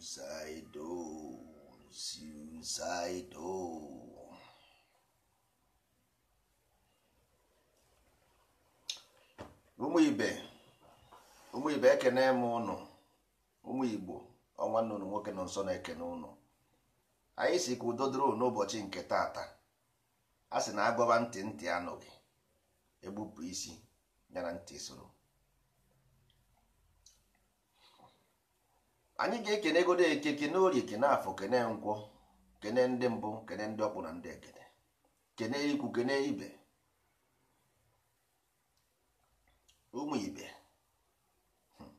suicidal, Ụmụ ibe ụmụ ibe ekene m ụnụ ụmụ Igbo ọnwa nnụnụ nwoke nọ nso na-ekene ụnụ anyị si ka udo dịrị n'ụbọchị nke tata a sị na agọba ntị ntị anụghị egbupụ isi nyere ntị soro anyị ga-ekenegodo eke kene orie kene afọ kene nkwọ kene ndị mbụ kene ndị ọkpụ na ndị ekene kene ikwu kene ibe ụmụ ibe hmm.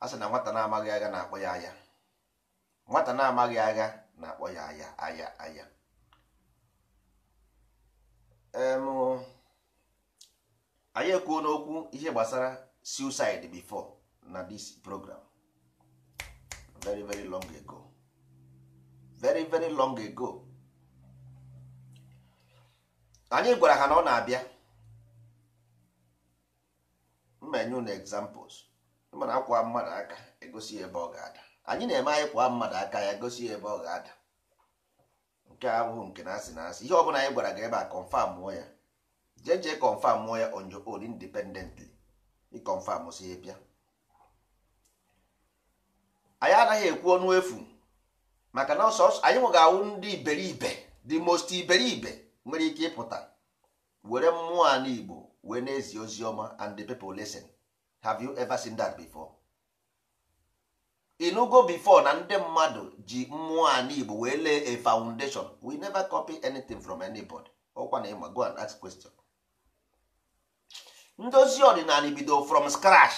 a sị na nwata na-amaghị agha na-akpọ ya aya nwata na-amaghị agha na-akpọ ya aya aya aya anyị ekwuo n'okwu ihe gbasara suicide before na dis program very very long ago very very long ago anyị gwara ha na ọ na-abịa mmenyu na examples mana akwa mmadụ aka egosi ebe ọ ga-ada anyị na-eme anyị kwa mmadụ aka ya egosi ebe ọ ga-ada nke ahụhụ nke na-asị na asị ihe ọ bụla anyị gwara ga ebe a confirm mụọ ya jee jee confirm mụọ ya on your own independently ị confirm si ya bịa anyị anaghị ekwu ọnụ efu maka na ọsọ anyị nwe ga-awụ ndị iberibe the most iberibe nwere ike ịpụta were mmụọ a Igbo wee na-ezi ozi ọma and the people listen have you ever seen that before? inugo before na ndị mmadụ ji mmụọ a Igbo wee lee a foundation we never copy anything from anybody ọkwa na ịma go and ask question ndozi ọdịnala bido from scratch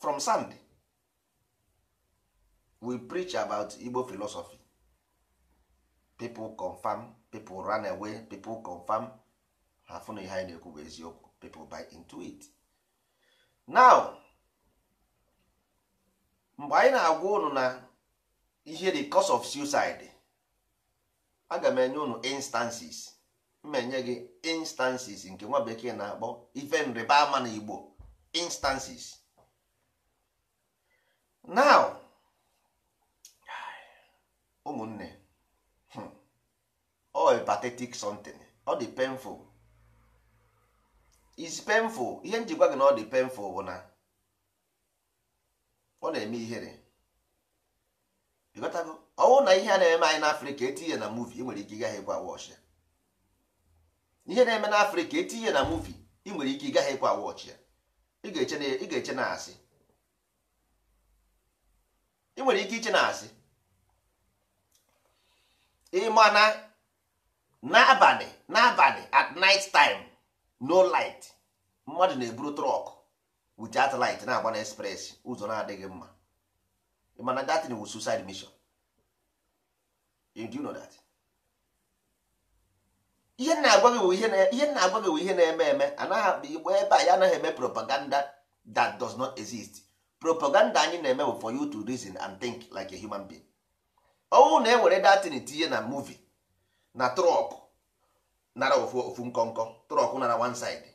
from sand we preach about igbo philosophy people confirm people run away people confirm ha fụ ihe anyị na-ekwu bụ eziokwu people buy into now mgbe anyị na-agwa unu na ihe the cause of suicide aga m enye unu instances m enye gị instances nke nwa bekee na-akpọ ife nrịba ama na igbo instances now ụmụnne ọ hmm, oh, patetik something ọ dị painful is painful ihe njikwa gị na ọ dị painful bụ na ọ na-eme ihere ịghọtago ọwụ na ihe a na-eme anyị n'afrịka etinye na muvi nwere ike ịgaghị ịkwa wọch ya ihe na-eme n'afrịka etinye na muvi ị nwere ike ịgaghị ịkwa wọch ya e ị ga-eche na asị ị nwere ike iche na asị ịma na n'abalị n'abalị at night time no light mmadụ na-eburu trọk with that light na-agba na express ụzọ na-adịghị mma ịma na that was suicide mission eh, do you know that ihe na-agwa gị ihe na-eme eme anaghị igbo ebe a ya anaghị eme propaganda that does not exist propaganda anyị na-eme bụ for you to reason and think like a human being. ọnwụ na ewere datin tinye na muvi na trọk nara ofu nkọnkọ trọk nara one side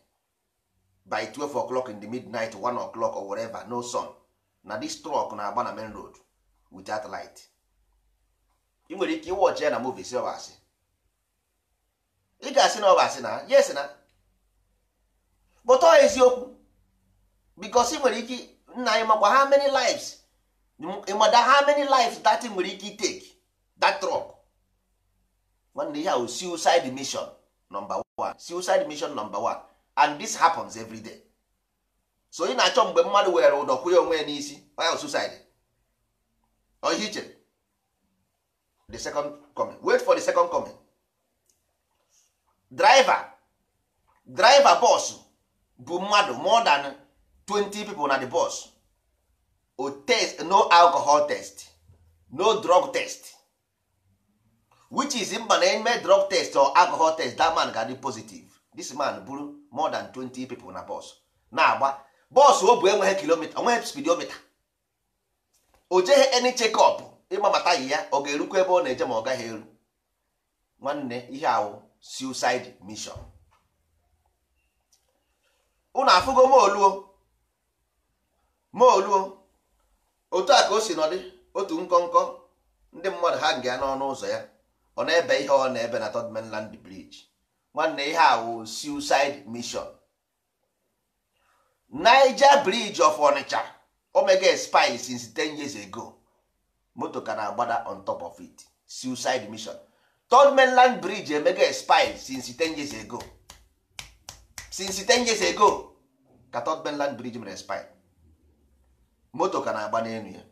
by 12 o'clock in the midnight 1 o'clock or whatever no sun na this trọk na-agba na main road without light ị nwere ike ịwọchi ya na muvi si ọbasị ị ga-asị na ọbasị na yes na bụtọ eziokwu bikos ị nwere ike nna anyị makwa ha many lives ịmada ha many lives datin nwere ike iteki that truck nwanne ihe ahụ oh, suicide mission number one suicide mission number one and this happens every day so ị na-achọ mgbe mmadụ were ụdọ kwụnye onwe ya n'isi onye suicide ihe iche the second coming wait for the second coming driver driver boss bụ mmadụ more than 20 people na the bus o test no alcohol test no drug test which is mba na eme drug test or alcohol test that man ga-adị positive this man buru more than 20 people na bus na-agba bọs o bụ enweghị kilomita onweghị nweghị o jeghị any check up ịgbabata yi ya ọ ga-erukwa ebe ọ na-eje ma ọ gaghị eru nwanne ihe awụ suicide mission unu afụgo moluo moluo otu a ka o si nọdị otu nkọnkọ ndị mmadụ ha nga n'ọnụ ụzọ ya ọ na-ebe ihe ọ na-ebe na third mainland bridge nwanne ihe a wụ suicide mission Niger bridge of Onitsha omega spy since 10 years ago moto ka na-agbada on top of it suicide mission third mainland bridge emega spy since 10 years ago since 10 years ago ka third mainland bridge mere spy moto ka na-agba n'elu ya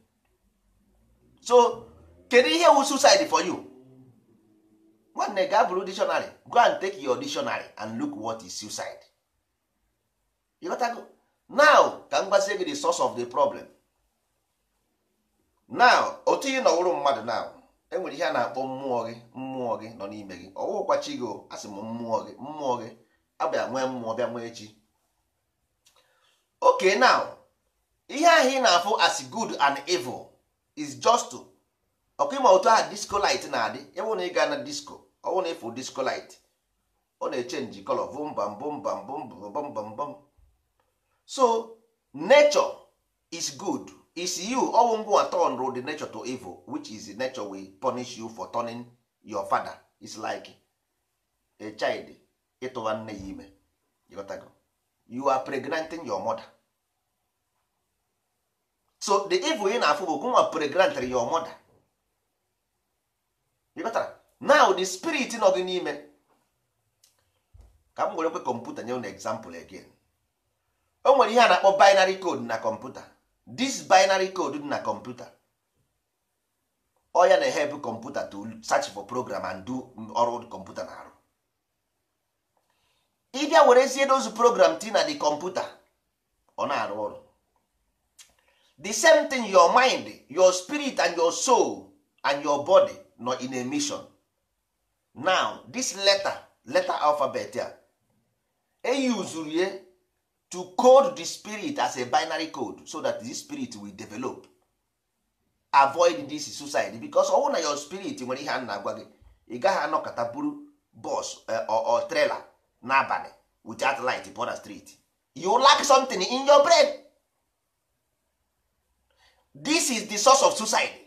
so kedu ihe wụ suicide for you nwanne gaa bụrụ dictionary go and take your dictionary and look what is suicide ịghọtago now ka m gbazie gị the source of the problem now otu ị nọwụrụ mmadụ now enwere ihe a na-akpọ mmụọ gị mmụọ gị nọ n'ime gị ọwụkwa chi gị asị m mmụọ gị mmụọ gị abịa nwee mmụọ bịa nwee chi oke now ihe ahụ ị na-afụ as good and evil is just ọkụ ịma otu ahụ disco light na-adị ebe na ịga na disco ọnwụ na ịfụ discolite ọ na-echenji color bụmbam bụmbam bụmbam bụmbam so nature is good is you ọnwụ ngwa turn the nature to evil which is the nature will punish you for turning your father is like a child ịtụwa nne ya ime you are pregnanting your mother so the evil ị na-afụ bụ gụnwa pregnantry your mother now the spirit nọ gị n'ime ka m were kwe kọmputa nye na example again o nwere ihe a na-akpọ binary code na kọmputa this binary code dị na kọmputa ọ ya na-ehelp kọmputa to search for program and do ọrụ kọmputa na-arụ were werezie dozu program ti na the kọmputa ọ na-arụ ọrụ the same thing your mind your spirit and your soul and your body nọ in a mission now this letter letter alphabet a eyuzuru ya to code the spirit as a binary code so that the spirit will develop avoid this suicide because ọ na your spirit nwere ihe a na-agwa gị ị gaghị anọkọta buru bus or eh, trailer n'abalị without light upon the street you lack something in your brain this is the source of suicide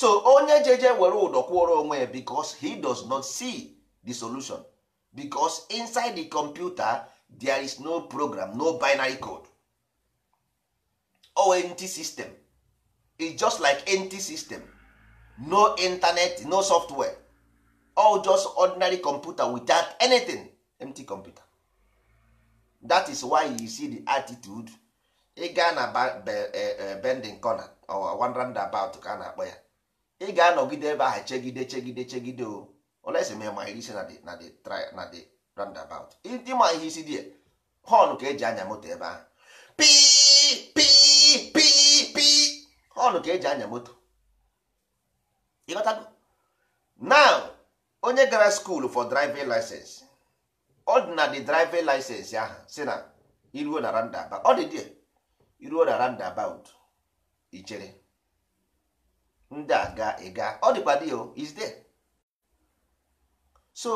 so onye jeje were ụdọ kwụọrọ onwe ya because he does not see the solution because inside the computer there is no program no binary code or nt system e just like nt system no internet no software all just ordinary computer without anything empty computer that is why you see the attitude e gaa na eh, eh, bending corner or wandering about ka a na-akpọ ya ị ga-anọgide ebe ahụ chegide chegide chegide o olesi ma ịma ihe isi na the na dị roundabout ndị ma ihe isi dị họnụ ka eji anya moto ebe ahụ pii pii pii pii họnụ ka eji anya moto ịghọtago now onye gara skuul for driving license ọ dị na dị driving license ahụ si na iruo na roundabout ọ dị dị iruo na roundabout ichere ndị a ga ịga ọ dịkwa dị oh, is there so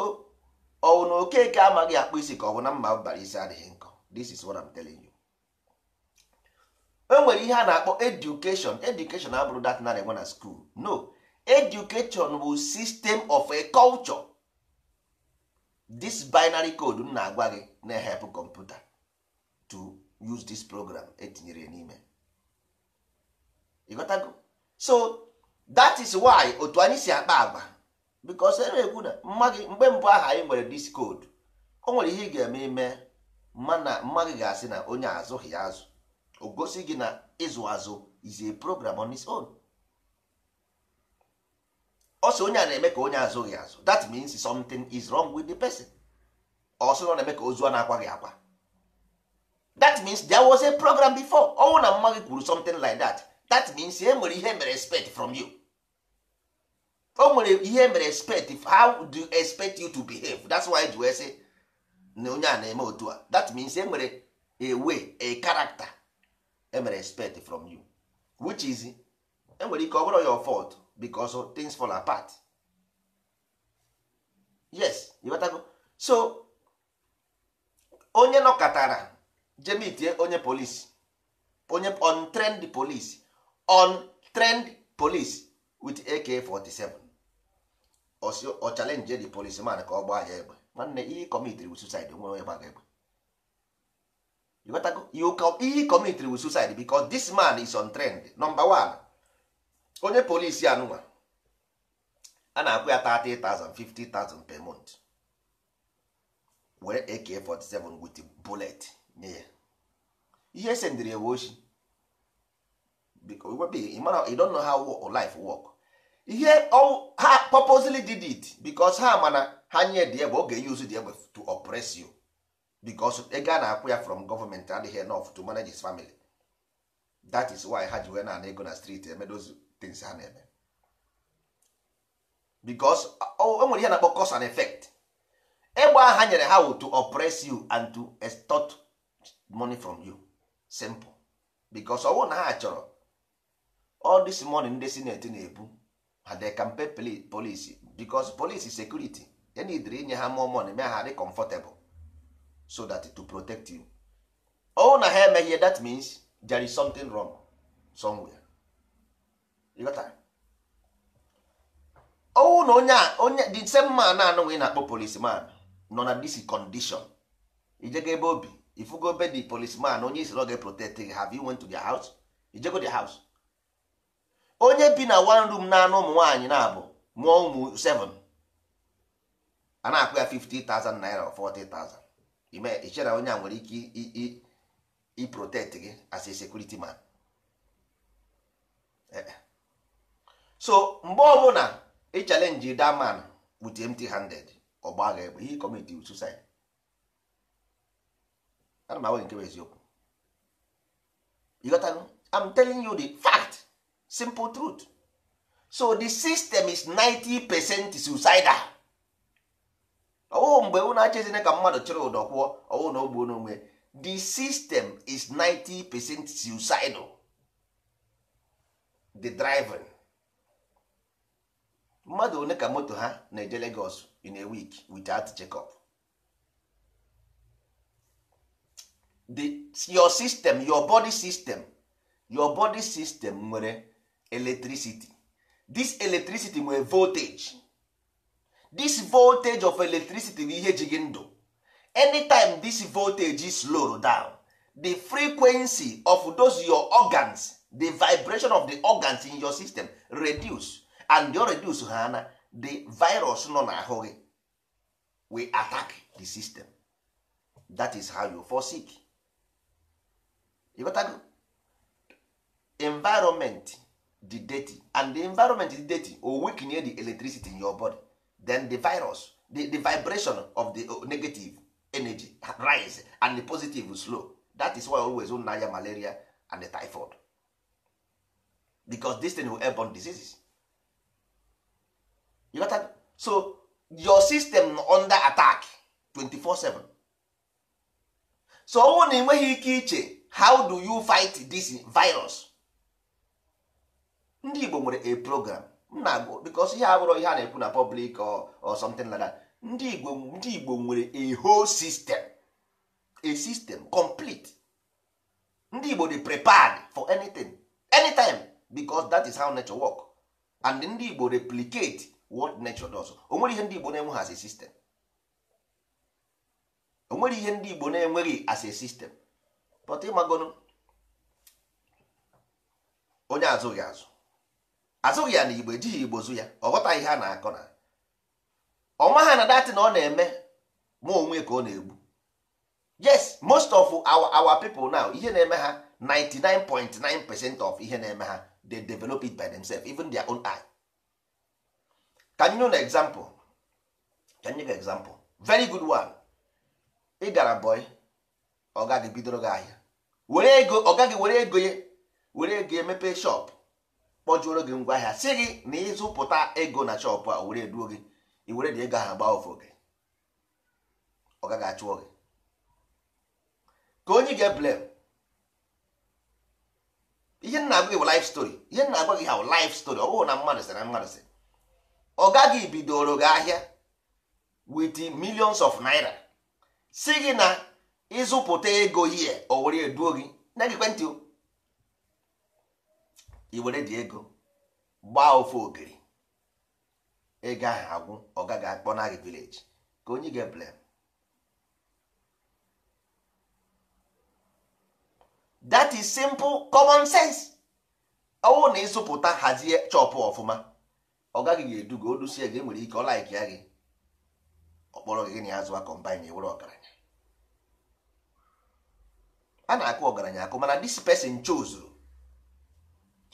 ọwụ na okeke amaghị akpụ isi ka ọ bụ na mma bara isi adịghị nkọ this is what I'm telling you e nwere ihe a na-akpọ education education abụrụ that na enwe na school no education bụ system of a culture this binary code m na-agwa gị na-ehepụ kọmputa to use this program etinyere n'ime ịghọtago so that is why otu anyị si akpa agwa because e ekwu na mma gị mgbe mbụ aha anyị nwere dis discode o nwere ihe ị ga-eme ime mana mma ga-asị na onye azụghị azụ o gosi gị na ịzụ azụ is a program on its own ọsọ onye a na-eme ka onye azụghị azụ that means something is wrong with the person ọ sị na ọ na-eme ka ozu a na-akwa gị akwa that means there was a program before ọnwụ na mma kwuru something like that that means e nwere ihe mere respect from you o nwere ihe mere respect how do you expect you to behave that's why ji wee na onye a na-eme otu a that means e nwere a way a character e mere from you which is e nwere ike ọ bụrụ your fault because things fall apart yes ịghọtago so onye nọkọtara jemitie onye polisi onye on trend polisi on trend police with AK47 ọ challenge the policeman ka ọ gbaa ya egbe nwanne ihe committed with suicide nwere onye gbaga egbe ihe committed with suicide because this man is on trend number one onye polisi anụnwa a na-akwụ ya 30,000 per month were AK47 with bullet nye ya ihe e sendịrị ewe oshi you don't know how life work ihe oh, ha purposely did it because ha mana ha nye dị o oge use di egbe to oppress you because ego a na-akwụ ya from government adịghị enough to manage his family that is why ha ji wee na-ana ego na street eme those things ha na-eme because o oh, e nwere ihe na-akpọ cause and effect egbe ha nyere ha to oppress you and to extort money from you simple because ọwụ na ha chọrọ all this money ndị sineti na-ebu ha can pay polisi because polisi security need na idiri inye ha more money mee ha dị comfortable so that to protect you ọ na ha emeghị that means there is something wrong somewhere ọwụ na onye onye the same man anụghị na-akpọ policeman nọ na dis condition ijego ebe obi ifugo be the policeman onye isoro ga protect have you went to their house ijego their house onye bi na one room na-anụ ụmụ nwaanyị na-abụ mụọ ụmụ 7 a na-akpụ ya 50,000 naira or 40,000 ime ichere onye a nwere ike iprotect gị as a security man e, e. so mgbe ọbụla ị challenge daman man with handed ọgba egbe ihe committee suicide ana m agwa nke bụ eziokwu ịghọtanụ I'm telling you the fact simple truth so the system is 90 percent suicidal oh mgbe ụ na-achezina ka mmadụ chịrị ụdọ kwụọ ọwụ na ogbuo n'onwe the system is 90 percent suicidal the driving mmadụ one ka moto ha na-eje Lagos in a week without checkup the your system your body system your body system nwere electricity this electricity nwere voltage this voltage of electricity bụ ihe ji gị ndụ anytime this voltage is slowed down the frequency of those your organs the vibration of the organs in your system reduce and you reduce ha na the virus no na gị we attack the system that is how you fall sick environment the dirty and the environment is dirty or weaken the electricity in your body then the virus the, the vibration of the uh, negative energy rise and the positive slow that is why always naya malaria and the typhoid because this thing will airborne diseases you got that? so your system under attack 24 7 so ọnwụ na enweghị ike iche how do you fight this virus ndị Igbo nwere a program nna because ihe abụrụ ihe a na-ekwu na public or something like that ndị Igbo ndị Igbo nwere a whole system a system complete ndị Igbo dey prepared for anything anytime because that is how nature work and ndị Igbo replicate what nature does o nwere ihe ndị Igbo na enwe as a system o nwere ihe ndị Igbo na-enweghị as a system but ịmagono onye azụghị azụ azụghị ya na igbo ejighị igbo zụ ya ọ ghọta ihe a na-akọ na ọnwa ha na datị na ọ na-eme ma onwe ka ọ na-egbu yes most of our, people now ihe na-eme ha 99.9 percent of ihe na-eme ha they develop it by themselves even their own eye ka know na example you nye example very good one ị gara boy ọ gaghị bidoro gị ahịa were ego ọ gaghị were ego ya were ego ya mepee shop kpọjuoro gị ngwa ahịa si gị na ịzụpụta ego na chọpụ a were eduo gị iwere dị ego ahụ gbaa ofu gị ọ gaghị achụọ gị ka onye ga-eblem ihe nna agwa gị bụ life story ihe nna agwa gị ha bụ life story ọ bụghị na mmadụ sị na mmadụ sị ọ gaghị bidoro gị ahịa with millions of naira si gị na ịzụpụta ego ihe o were eduo gị na gị kwentị o i were di ego gbaa ofe ogiri ego ahụ agwụ ọ gaghị akpọ na gị vileji ka onye ga-eblem that is simple common sense ọwụ na ịzụpụta hazie chọpụ ọfụma ọ gaghị ga-eduga odusie gị e nwere ike ọ laiki ya gị ọkpọrọ gị na ya zụwa kọmbine were ọgaranya a na-akụ ọgaranya akụ mana dis person chose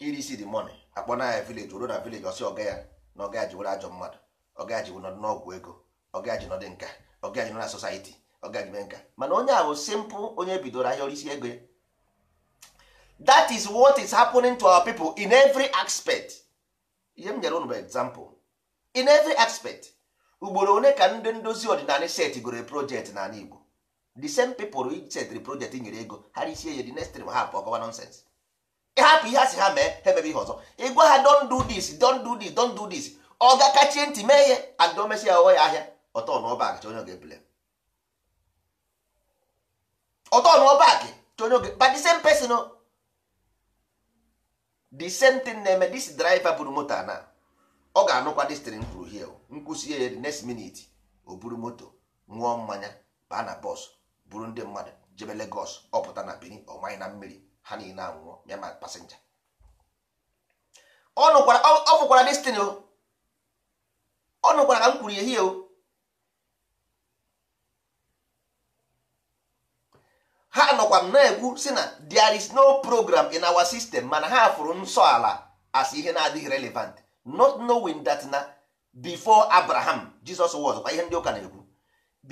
irisi the money akpọ na ya village ruo na village ọsị ọga ya na ọga ji were ajọ mmadụ ọga ji nọdụ n'ọgwụ ego ọga ya ji nọdụ nka ọga ji nọ na society ọga ji mee nka mana onye ahụ simpụ onye bidoro ahịa orisi ego that is what is happening to our people in every aspect ihe m nyere unu bụ example in every aspect ugboro one ka ndị ndozi ọdịnala setgoro project n'ala Igbo the same people setiri project nyere ego ha risie ya dị next time ha apụ ọgọwa nonsense hapụ ihe a si ha mee ha emebe ihe ọzọ ịgwa ha don do this don do this don do this ọ ga-akachie ntị mee ihe andị ya ọghọ ya ahịa ọtọ n'ọba akị onye ga-ebule ọtọ n'ọba akị onye oge but the same person the same thing na-eme this driver buru moto na ọ ga-anụkwa destrin kwuru hie nkwụsị ya the next minute o buru moto ṅụọ mmanya baa na bọs buru ndị mmadụ jebe Lagos ọpụta na Benin ọmanye na mmiri ha niile anwụọ ya ma pasenja ọ nụkwara destin o ọ nụkwara ka m kwuru ehihie o ha nọkwa m na-ekwu si na there is no program in our system mana ha fụrụ nsọ ala as ihe na-adịghị relevant not knowing that na before abraham jesus was kwa ihe ndị ụka na-ekwu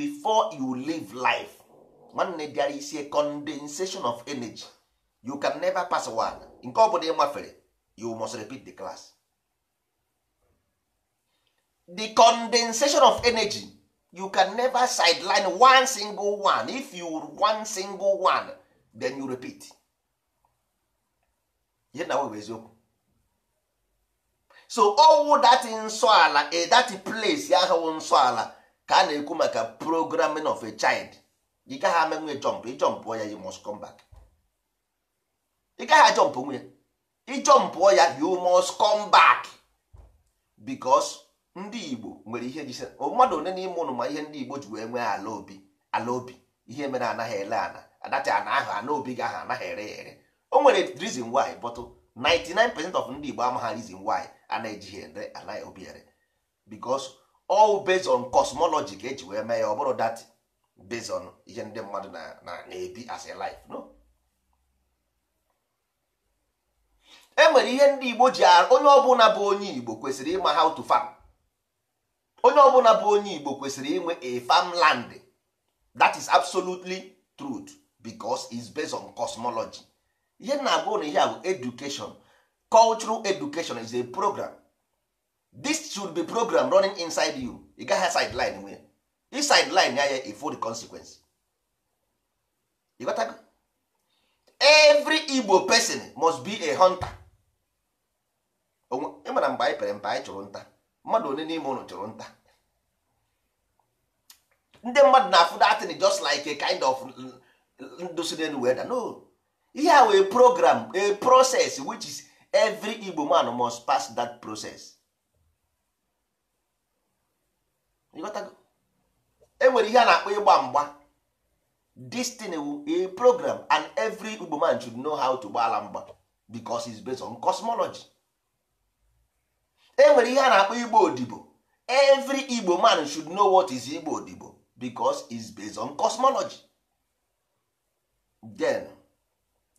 before you live life nwanne there is condensation of energy you can never pass one nke ọ bụla ị mafere you must repeat the class the condensation of energy you can never sideline one single one if you one single one then you repeat ihe na webụ eziokwu so owu that nsọ ala eh, that place ahụ nsọ ala ka a na-ekwu maka programming of a child you gaghị amenwe jump ị eh, jump ya you must come back ị gaghị ajọmpụ onwe ya ịjọmpụọ ya you must come back because ndị Igbo nwere ihe ji mmadụ one n'ime ụnụ ma ihe ndị Igbo ji wee nwee ala obi ala obi ihe mere anaghị ele ana adacha ana ahụ ana obi gị ahụ anaghị ere ya ere o nwere reason why bọtụ 99% of ndị Igbo amaghị reason why a na-ejighị ere anaghị obi ere because all based on cosmology ka eji wee mee ya ọ bụrụ that based on ihe ndị mmadụ na na-ebi as a life no enwere ihe ndị igbo ji onye ọbụla bụ onye igbo kwesịrị ịma how to farm onye ọbụla bụ onye igbo kwesịrị inwe a farmland that is absolutely truth because it's based on cosmology ihe na-agụ na ihe bụ education cultural education is a program this should be program running inside you ị gaghị sideline nwee i sideline ya ya ifo the consequence every igbo person must be a hunter ịmara e mgbe anyị pere mpe anyị chụrụ nta mmadụ one n'ime ụlọ chụrụ nta ndị mmadụ na-afụ datin just like a kind of ndụ si n'elu weda no ihe a wee program a process which is every Igbo man must pass that process enwere ihe a na-akpọ ịgba mgba destiny a program and every Igbo man should know how to gbala mgba because it's based on cosmology enwere ihe a na-akpọ igbo odibo every igbo man should know what is igbo odibo because is based on cosmology then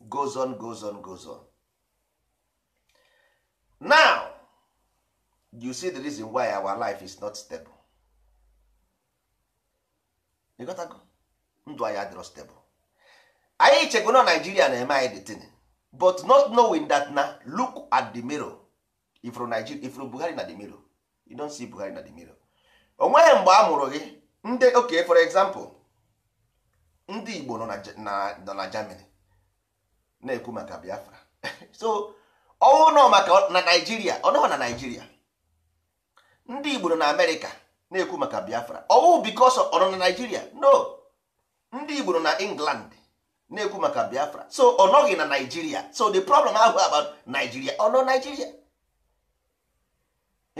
goes on goes on goes on now you see the reason why our life is not stable you got to go ndụ anyị stable anyị chekwa na Nigeria na-eme anyị detin but not knowing that na look at the mirror ifuru Nigeria ifuru Buhari na the mirror you don see Buhari na the mirror onweghị mgbe a mụrụ gị ndị oke for example ndị Igbo nọ na Germany na-ekwu maka Biafra so ọnwụ nọ maka na Naijiria ọ nọghị na Naijiria ndị Igbo nọ na America na-ekwu maka Biafra ọnwụ because ọ nọ na Naijiria no ndị Igbo nọ na England na-ekwu maka Biafra so ọ nọghị na Naijiria so the problem ahụ about Nigeria ọ nọ Nigeria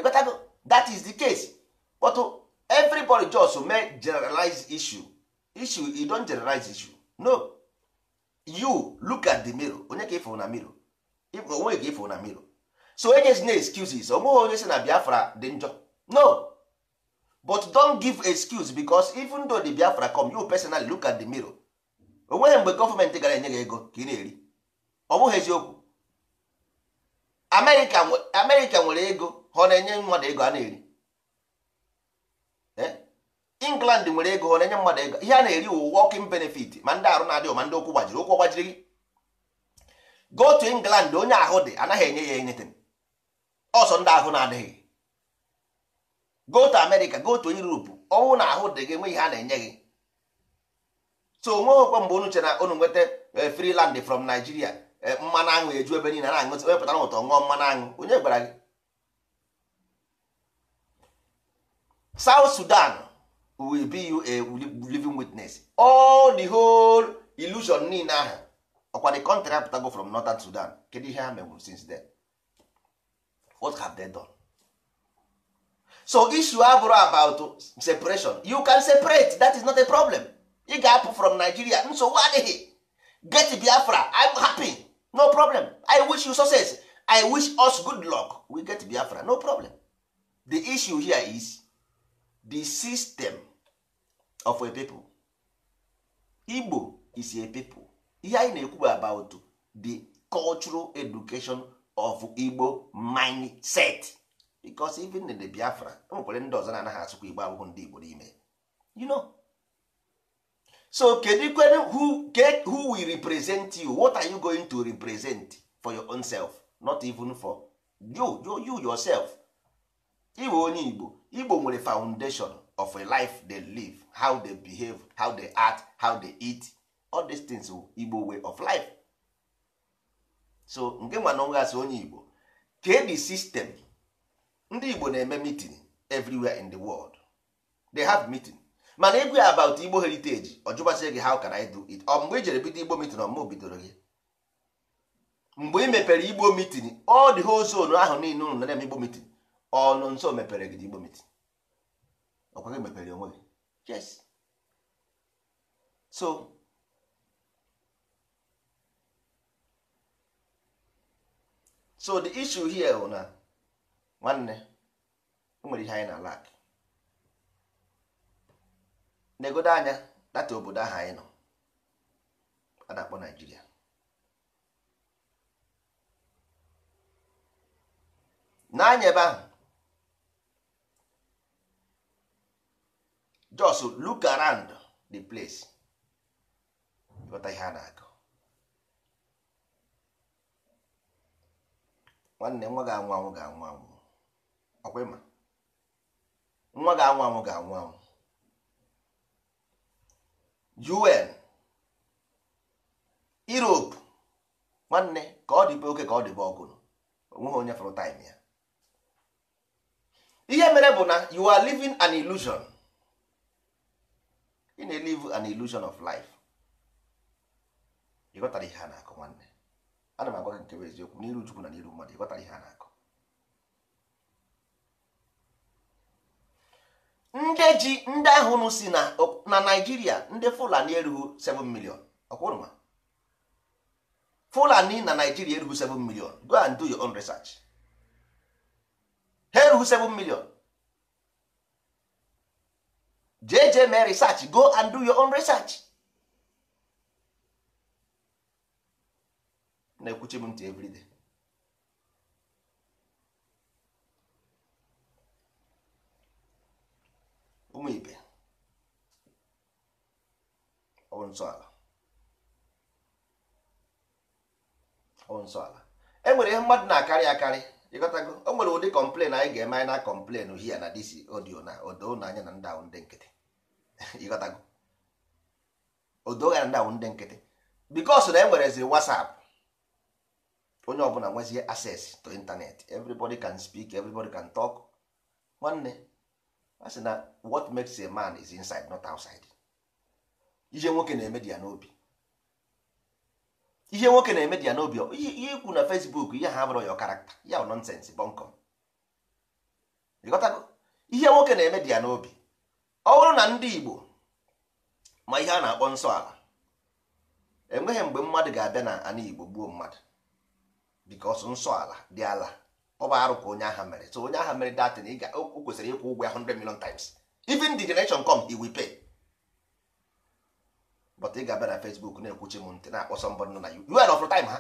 ịgotago that is the case but everybody just may generalize issue issue you don generalize issue no you look at the mirror onye ka ịfụ na mirror onwe ka ịfụ na mirror so n'a excuses onweghị onye si na biafra dị njọ no but don give excuse because even though the biafra come you personally look at the mirror onweghị mgbe gọọmenti gara enye gị ego ka ị na-eri ọ bụghị eziokwu nwere ego ọ na-enye mmadụ ego a na-eri eh? England nwere ego ọ na-enye mmadụ ego ihe a na-eri wụ working benefit ma ndị arụ na-adịghị ma ndị ụkwụ gbajiri ụkwụ gbajiri gị go to England onye ahụ dị anaghị enye ya enyetin ọsọ ndị ahụ na-adịghị go to America go to Europe ọnwụ na ahụ dị gị nwe ihe a na-enye gị so onweghịkwa mgbe unu chere na nweta eh, free land from Nigeria eh, mmanụ aṅụ eju ebe niile na-aṅụ wepụtara ụtọ ṅụọ mmanụ aṅụ onye gwara gị south sudan will be you a living witness all the whole illusion niile ahụ ọkwa the country apụtago from northern sudan kedu ihe ha mewuru since then what have they done so issue abụrụ about separation you can separate that is not a problem ị ga-apụ from nigeria nsogbu adịghị get biafra i'm happy no problem i wish you success i wish us good luck we get biafra no problem the issue here is the system of a people igbo is a people ihe anyị na-ekwu about the cultural education of igbo mindset because even in the biafra enwekwere ndị ọzọ na-anaghị asụkwa igbo abụghị ndị igbo n'ime you know so kedu kwere who, who will represent you what are you going to represent for your own self not even for you, you yourself iwe onye igbo igbo nwere foundation of a life they live how they behave how they act how they eat all these things igbo way of life so nke nwa onwe asị onye igbo kee the system ndị igbo na-eme meeting everywhere in the world they have meeting mana egwu about igbo heritage ọjụbasị gị how can i do it ọ mgbe i jere bido igbo meeting ọmụ bidoro gị mgbe ị mepere igbo meeting all dị whole zone ahụ niile unu na-eme igbo meeting ọnụ nso mepere gị igbo meeting ọkwa gị mepere onwe gị yes so so the issue here bụ na nwanne nwere ihe anyị na alak na-egodo anya data obodo ahụ anyị nọ a na-akpọ naijiria n'anya ebe ahụ just look around the place ịghọta ihe a na-agụ nwanne nwa ga-anwụ anwụ ga-anwụ anwụ ọkwa ịma nwa ga-anwụ anwụ ga-anwụ anwụ UN Europe nwanne ka ọ dịbe oke ka ọ dịbe ọgụrụ onweghị onye fọrọ taịm ya ihe mere bụ na you are living an illusion. ị na-elive an illusion of life ịghọtara ihe a na-akọ nwanne ana m agwa gị nke bụ eziokwu n'iru Chukwu na n'iru mmadụ ịghọtara ihe a na-akọ ndị ji ndị ahụ si na Naịjirịa ndị Fulani erughị 7 million ọkwụrụma Fulani na Naịjirịa erughị 7 million go and do your own research ha erughị 7 million jee jee mee research go and do your own research na-ekwuchi m ntị everyday ụmụ ibe ọwụ nsọala ọwụ nsọala e nwere ihe mmadụ na-akarị akarị ịghọtago o nwere ụdị kọmplen anyị ga-eme anyị na kọmplen hia na disi odio na odo na anya na ndawụ ndị nkịtị ịghọtago odo ya na ndawụ ndị nkịtị bikos na e ziri wasap onye ọbụla nwezie access to internet everybody can speak everybody can talk nwanne a sị na what makes a man is inside not outside ije nwoke na-eme di ya n'obi ihe nwoke na-eme dị ya n'obi ihe ikwu na Facebook ihe ha bụrụ ya karakta ya bụ nọnsensị bọnkọm ịghọtago ihe nwoke na-eme dị ya n'obi ọ bụrụ na ndị Igbo ma ihe a na-akpọ nsọ ala enweghị mgbe mmadụ ga-abịa na ana Igbo gbuo mmadụ bikos nsọ ala dị ala ọ bụ arụ ka onye agha mere so onye agha mere datin o kwesịrị ịkwụ ụgwọ ya 100 million times even the generation come he will pay but ị ga-abịa na Facebook na-ekwuchi m ntị na-akpọ sọmbọdụ nọ na juel ọfụrụ time ha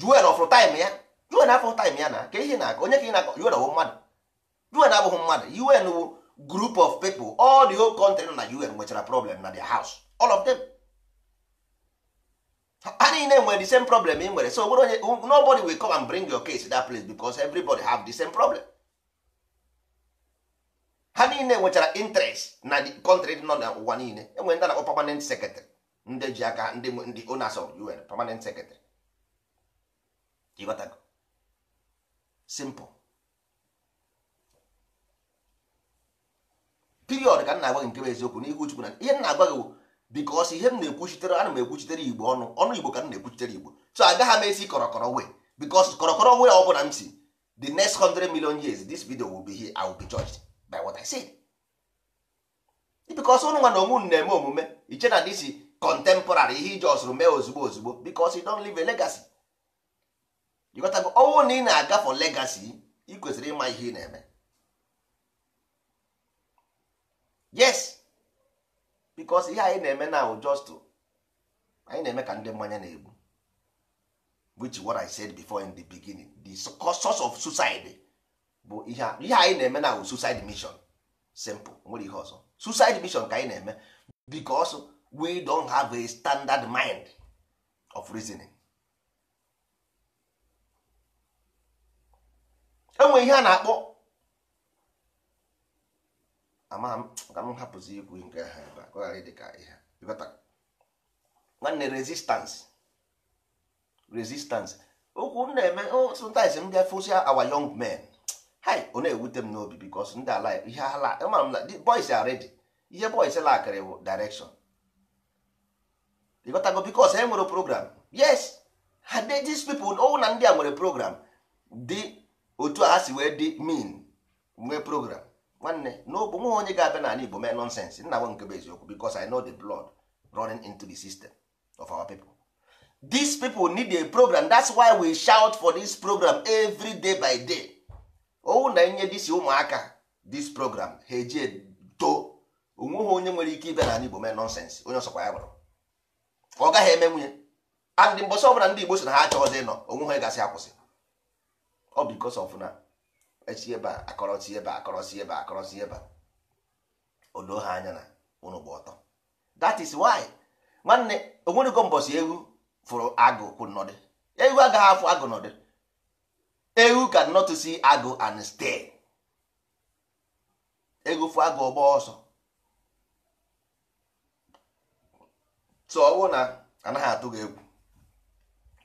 juel ọfụrụ time ya juel afọ time ya na ka ihe na-akọ onye ka ị na-akọ juel ọwụ mmadụ juel abụghị mmadụ un wụ group of people all the whole country nọ na un nwechara problem na their house all of them ha niile nwere the same problem ị nwere so nobody will come and bring your case that place because everybody have the same problem. ha niile nwechara interest na kọntrị dị nọ n'ụwa niile enwere ndị na-akpọ permanent secretary ndị ji aka ndị ndị owners of UN permanent secretary ịghọtago simple period ka m na-agwa gị nke bụ eziokwu n'ihu Chukwu na ihe m na-agwa gị because ihe m na-ekwuchitere ana m ekwuchitere igbo ọnụ ọnụ igbo ka m na-ekwuchitere igbo so agaghị m esi kọrọkọrọ wee because kọrọkọrọ wee ọ bụla m si the next 100 million years this video will be here I will be judged by what I said because ụnụ nwa na onwe na-eme omume iche na this contemporary ihe iji ọsụrụ mee ozugbo ozugbo because e don leave a legacy ịgotago ọnwụ oh, na ị na-aga for legacy ị kwesịrị ịma ihe ị na-eme yes because ihe anyị na-eme na just anyị na-eme ka ndị mmanya na-egbu which is what I said before in the beginning the source of suicide bụ ihe ihe anyị na-eme na suicide mission simple nwere ihe ọzọ suicide mission ka anyị na-eme because we don have a standard mind of reasoning enwe ihe a na-akpọ ama ka m hapụzi ikwu nke ha ebe ka ọ ghara ịdị ka ihe nwanne resistance resistance okwu m na-eme oh, sometimes m bịa fosia our young men hi ọ na m n'obi bikos ndị ala ihe ala ama m na boys are ready ihe boys lakịrị bụ direction ịghọtago bikos e nwere program yes ha de dis pepl ọwụ na ndị a nwere program dị otu a si wee dị mean nwee program nwanne n'obu nwa onye ga-abịa n'ala igbo mee nonsens nna nwe nke bụ eziokwu bikos i know the blood running into the system of our people people need a program every day by day owu na enye disi ụmụaka dis program ha eji too ha onye nwere ike ịbịa n'ala Igbo mee nọnsensị onye ọsọkwa ya gwara ọ gaghị eme nwunye adị mbọsị ọbụla ndị Igbo si na ha achọghịzị ịnọ onweghị onye gasị akwụsị ọ bụ because of na echi ebe akọrọsi ebe akọrọsi ebe akọrọsi ebe a odo ha anya na ụnụ gba ọtọ that is why nwanne onwerego mbọsị ewu fụrụ agụ kwụ nọdị ewu agaghị afụ agụ nọdị ewu cannot see agụ and stay fu agụ ọgba ọsọ so ọwụ na anaghị atụ gị egwu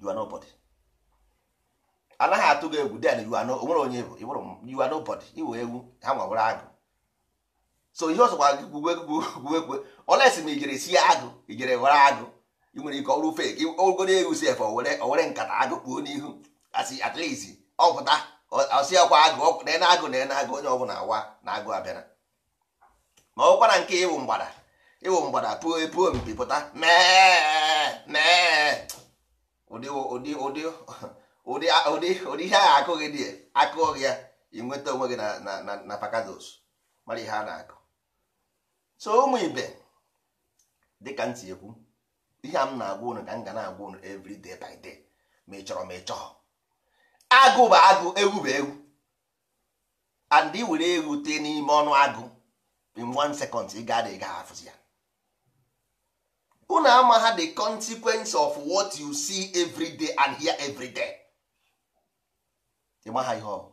you are nobody anaghị atụ gị egwu then you are no onwere onye bụ ịbụrụ you are nobody iwe ewu ha nwawere agụ so ihe ọzọ gwara gị gwuwegwu olesi ma ijere sie agụ ijere were agụ ị nwere ike ọrụ fake ogoro ewu si efe owere nkata agụ kpuo n'ihu asị at least ọpụta ọsị ọkwa agụ na agụ na agụ onye ọbụla awa na agụ abịara ma ọ na nke ịwụ mgbada ịwụ mgbada puo puo mpi pụta mee ụdị ụdị ụdị ụdị ụdị ihe ahụ akụghị ya akụghị ya inweta onwe gị na pakados mara ihe a na-akụ so ụmụ ibe dịka ntị ekwu ihe a m na-agwa unu ka m ga na-agwa ụnụ every day by day ma ị chọrọ ma ị chọọ agụ bụ agụ ewu bụ ewu and ị were ewu tee n'ime ọnụ agụ in one second ị ga ị ga-afụzi ya unu ama ha the consequence of what you see every and hear every day ịma ha ihe ọ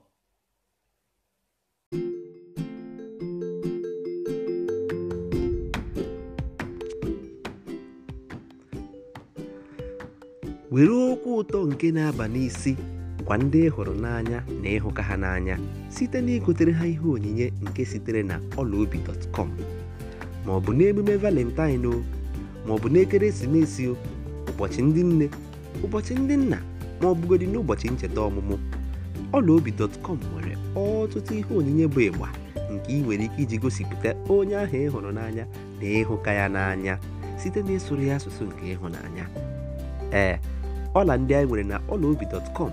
were okwu ụtọ nke na-aba n'isi bụkwa ndị ị hụrụ n'anya na ịhụka ha n'anya site na igotere ha ihe onyinye nke sitere na ọlaobi.com ma ọ bụ n'emume valentine o ma ọ n'ekeresimesi o ụbọchị ndị nne ụbọchị ndị nna ma ọ bụgodị n'ụbọchị ncheta ọmụmụ ọla obi dọtkọm nwere ọtụtụ ihe onyinye bụ ịgba nke ị nwere ike iji gosipụta onye ahụ ị hụrụ n'anya na ịhụka ya n'anya site eh, na ịsụrụ ya asụsụ nke ịhụnanya ee ọla ndị anyị nwere na ọla obi ọlaobi.com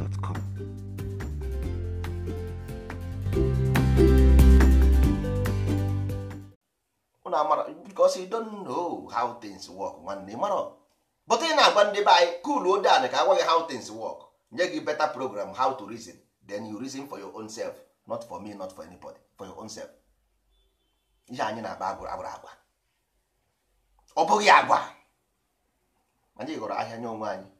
gmail.com. because you don't know how things work nwanne mara but ị na-agwa ndị be anyị cool ode anị ka agwaghị how things work nye gị better program how to reason then you reason for your own self not for me not for anybody for your own self ihe anyị na-akpa agwụrụ agwa ọ bụghị agwa anyị gụrụ ahịa nye onwe anyị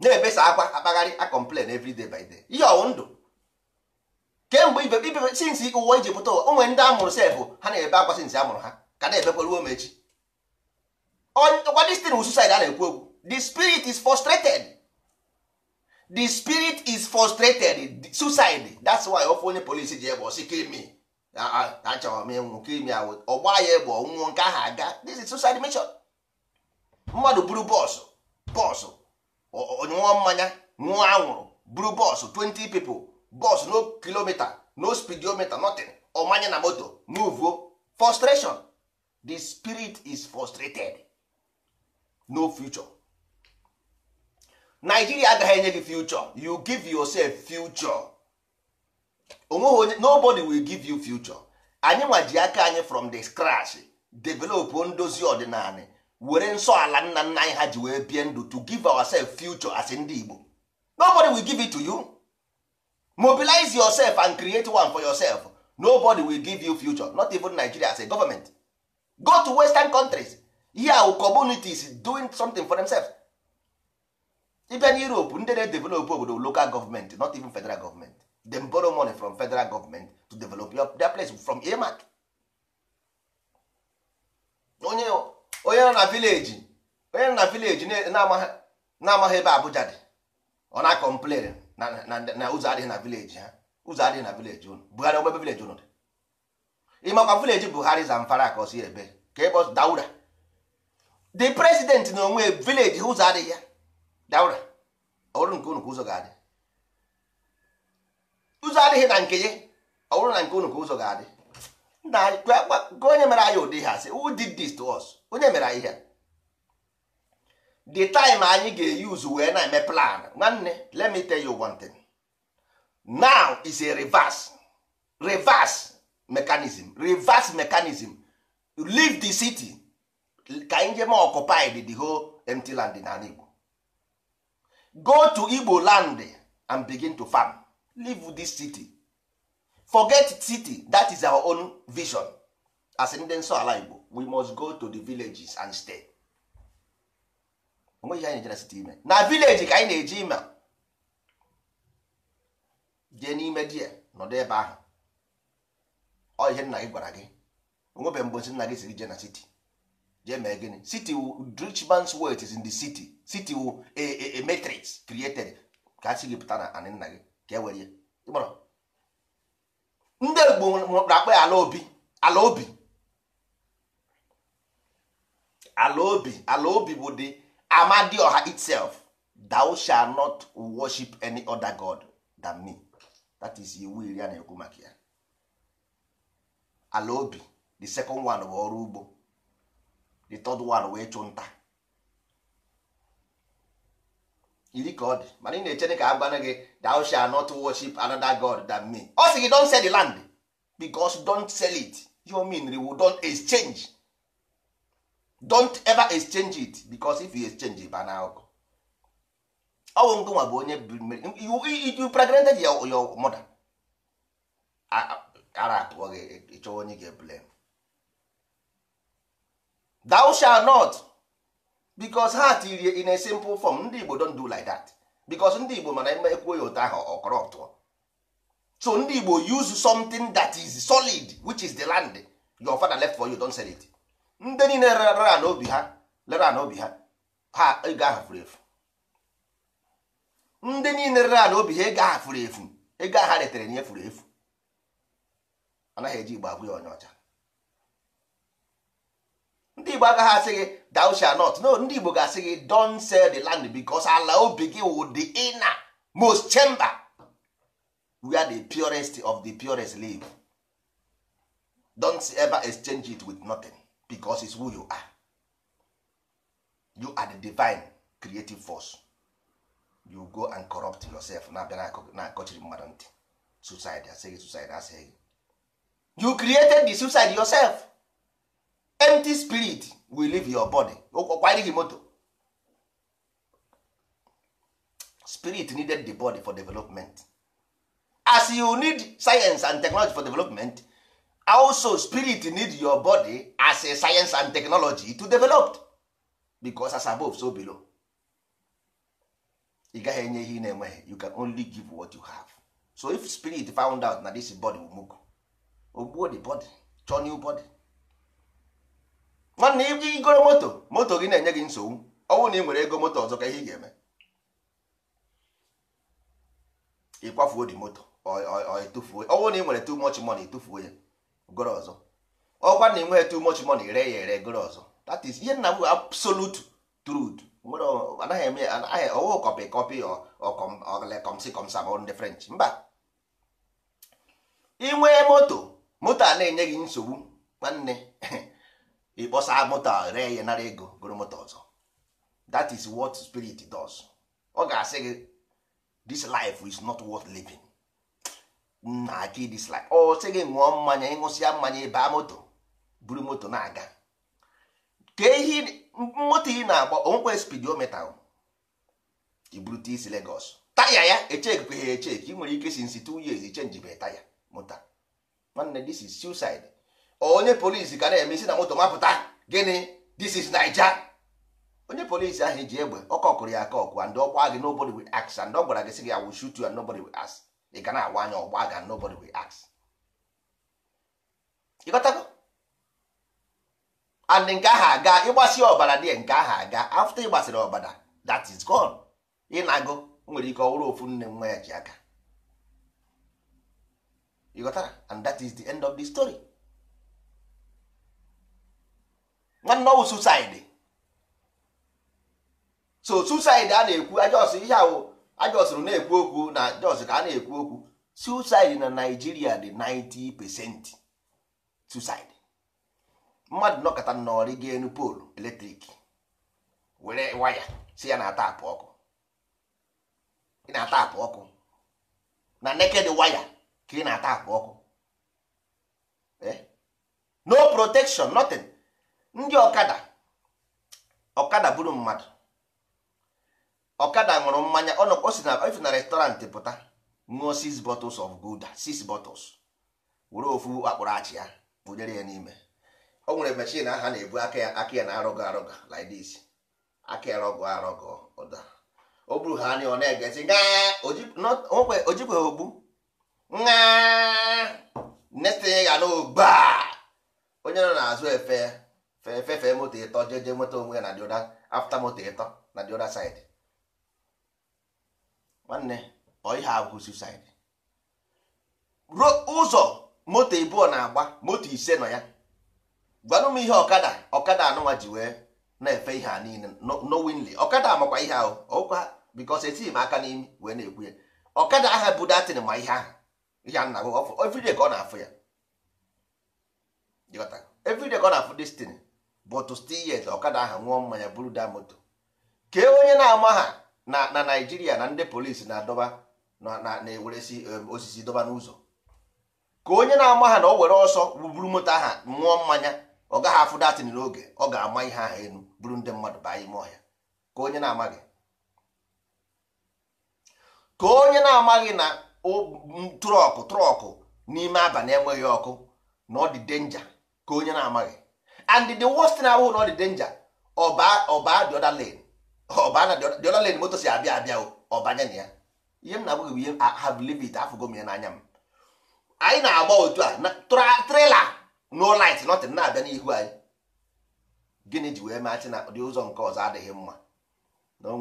na-ebesa akwa akpagharị a complain every day by day ihe ọwụ ndụ kemgbe ibe ibe sinsi ụwa iji pụta ụwa onwe ndị amụrụ sefụ ha na-ebe akwa sinsi amụrụ ha ka na-ebekwa ruo mechi ọkwa this thing suicide a na-ekwu okwu the spirit is frustrated the spirit is frustrated suicide that's why ofe onye polisi ji egbe osi kimi achọrọ m ịnwụ kimi awụ ọgba ya egbe ọnwụnwụ nke ahụ aga this is suicide mission mmadụ buru bọsụ bọsụ onyụọ mmanya nwa anwụrụ buru bọọsụ 20 pipo bọọsụ no kilomita no speedometer nothing ọmanye na moto muvuo frustration the spirit is frustrated no future Nigeria agaghị enye gị future you give yourself future onye nobody will give you future anyị nwa ji aka anyị from the scratch develop ndozi ọdịnala were nsọ ala nna nna anyị ha ji wee bie ndụ to give ourselves future as ndị Igbo nobody will give it to you mobilize yourself and create one for yourself nobody will give you future not even Nigeria as a government go to western countries here our communities doing something for themselves Even na Europe ndị na-edevelop obodo local government not even federal government Dem borrow money from federal government to develop their place from earmark onye onye nọ na vileji onye nọ na vileji na-amaghị ebe Abuja dị ọ na-akọmplen na ụzọ adịghị na vileji ha ụzọ adịghị na vileji ụnụ Buhari ogbe vileji ụnụ dị ịmakwa vileji Buhari Zamfara ka ọ ebe ka ebe Daura the president na onwe vileji ụzọ adịghị ya Daura ọrụ nke ụnụ ka ụzọ ga-adị ụzọ adịghị na nke ya ọ bụrụ na nke ụnụ ka ụzọ ga-adị onye mere anyị ụdị ha sị who did this to us onye mere anyị ihe the time anyị ga use wee na-eme plan nwanne let me tell you one thing now is a reverse reverse mechanism reverse mechanism leave the city ka anyị jema occupied the whole empty land n'ala Igbo go to Igbo land and begin to farm leave this city forget city that is our own vision as ndị nsọ ala Igbo we must go to the villages and stay onwe ihe anyị jere site ime na vileji ka anyị na-eji ime jee n'ime di ya nọdụ ebe ahụ ọ ihe nna gị gwara gị onwebe mgbe nna gị siri jee na siti jee mee gịnị city wu, man's is in the city city wu a matrix created ka a sị gị pụta na anị nna gị ka e were ya ndị Igbo na ya ala obi ala obi ala obi ala obi bụ the amadioha itself thou shall not worship any other god than me that is iwu iri a na-ekwu maka ya ala obi the second one bụ ọrụ ugbo the third one wee chụ nta iri ka ọ dị mana ị na-echere ka agwana gị thou shall not worship another god than me ọ sị gị don't sell the land because don't sell it you mean we don't exchange don't ever exchange it because if you exchange it ba na ọkụ ọnwụ ngụ nwa bụ onye you pregnanted your, your mother ara atụọ gị ịchọwa e, e onye ga-eblame thou shall not because ha in a simple form ndị Igbo don't do like that because ndị Igbo mana ime ekwuo ya ụtọ ahụ ọ so ndị Igbo use something that is solid which is the land your father left for you don't sell it ndị niile rara n'obi ha lere n'obi ha ha ego ahụ furu efu ndị niile rara n'obi ha ego ahụ furu efu ego ahụ ha retere nye furu efu anaghị eji igbo agwụ ya onye ọcha ndị igbo agaghị asị gị thou shalt not no ndị igbo ga-asị gị don't sell the land because ala obi gị wụ the inner most chamber we are the purest of the purest live don't ever exchange it with nothing. because it's who you are you are the divine creative force you go and corrupt yourself na-abịa na-akọchiri mmadụ ntị suicide asịghị suicide asịghị you created the suicide yourself empty spirit will leave your body ọkwaghị moto spirit needed the body for development as you need science and technology for development also spirit need your body as a science and technology to develop because as above so below ị gaghị enye ihe ị na-enweghị you can only give what you have so if spirit found out na this body will move ogbuo the body chọọ new body nwanne ị igoro moto moto gị na-enye gị nsogbu ọnwụ na ị nwere ego moto ọzọ ka ihe ị ga-eme ịkwafuo dị moto ọnwụ na ị nwere too much money tụfuo ya goro ọzọ ọkwa na enweghị too much money ree ya ere goro ọzọ that is ihe nna bụ absolute truth nwere anaghị eme anaghị ọwụ kọpị kọpị ọlekomsi komsa ma ndị french mba inwee moto moto a na-enye gị nsogbu nwanne ịkpọsa moto a ree ya nara ego goro moto ọzọ that is what spirit does ọ ga-asị gị this life is not worth living nna gị dislike ọ sị gị ṅụọ mmanya ịṅụsịa mmanya baa moto buru moto na-aga ka ehi moto ị na-agba onwekwe spidometa iburute isi Legos. taya ya echekwa e ha ị nwere ike si nsi two years chenjibe taya moto nwanne this is suicide onye polisi ka na-eme isi na moto mapụta gịnị this is Naija onye polisi ahụ e ji egbe ọkọkụrụ ya aka ọkụ and ọkwa gị nobody will ask and ọ gwara gị sị gị I will you and nobody will ask ị ga na-agwa anya ọgba aga nobody will ask ịghọtago and nke ahụ aga ịgbasi ọbara dị nke ahụ aga afta ịgbasiri ọbara that is gone ị na-agụ na-agụ nwere ike ọwụrụ ofu nne nwa ya ji aka ịghọtara and that is the end of the story nwanne ọwụ suicide so suicide a na-ekwu ajọ ọsọ ihe ahụ ajọsịrị na-ekwu okwu na jos ka a na-ekwu okwu suicide na Naịjirịa dị 90 percent suicide mmadụ nọkọta n'ọrị ga-enu poolu eletrik were waya si ya na-atapụ ọkụ ị na-atapụ ọkụ na neked waya ka ị na-atapụ ọkụ eh? no protection nothing ndị ọkada ọkada bụrụ mmadụ ọkada ṅụrụ mmanya ọ si na ife na restọrantị pụta ṅụọ six bottles of gouda six bottles were ofu akpụrụ achị ya bụnyere ya n'ime o nwere mechin aha na-ebu aka ya aka ya na arọgọ arọgọ like this aka ya rọgọ arọgọ ụda o buru ha anya ọ na-egezi ege onwekwe ojikwe ogbu netinye ya n'ogba onye nọ n'azụ efe fefe moto ịtọ jeje nweta onwe ya na dioda afta moto ịtọ na dioda saidi. nwanne ọ ihe abụ suicide ruo ụzọ moto ịbụọ na-agba moto ise nọ ya gwanụ m ihe ọkada ọkada anụnwa ji wee na-efe ihe a niile nowinli ọkada makwa ihe ahụ ọkwa bikos etighi m aka n'imi wee na-ekwu ya ọkada aha bụ datin ma ihe ahụ ihe a na-agụ ka ọ na-afụ ya everyday ka ọ na-afụ destin but still yet ọkada aha nwụọ mmanya buru da moto kee onye na-ama ha na na naijiria na ndị polisi na-adọba na-eweresi um, osisi dọba n'ụzọ ka onye na-ama ha na o were ọsọ buru moto aha mụọ mmanya ọ gaghị afụ datin n'oge ọ ga-ama ihe aha elu buru ndị mmadụ baa ime ọhịa ka onye na-amaghị ka onye na-amaghị na trọkụ trọkụ n'ime abalị enweghị ọkụ na ọ dị denja ka onye na-amaghị and the worst na-abụghị na ọ dị denja ọba ọba dị ọda lane ọbana moto si abịa abịa ọbanya na ya ihe m na-abụghị bụ ihe have live it afụgo m ya n'anya m anyị na-agba otu a trela no light nothing na-abịa n'ihu anyị gịnị ji wee maachị na ụdị ụzọ nke ọzọ adịghị mma na o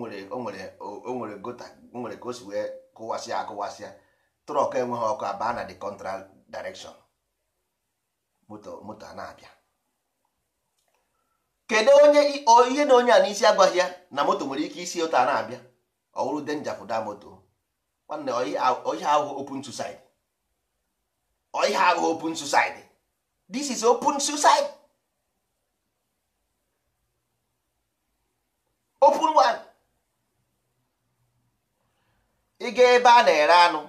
nwere gota o nwere ka o si wee kụwasịa akụwasịa trọk enweghị ọkụ abaa na the contra direction moto moto a na-abịa kedu onye ihe na onye a n'isi agwaghị ya na moto nwere ike isi ụta na-abịa ọwụrụ denja fụda moto nwanne ọhịa ahụ open suicide ọhịa ahụ open suicide this is open suicide open one ịga ebe a na-ere anụ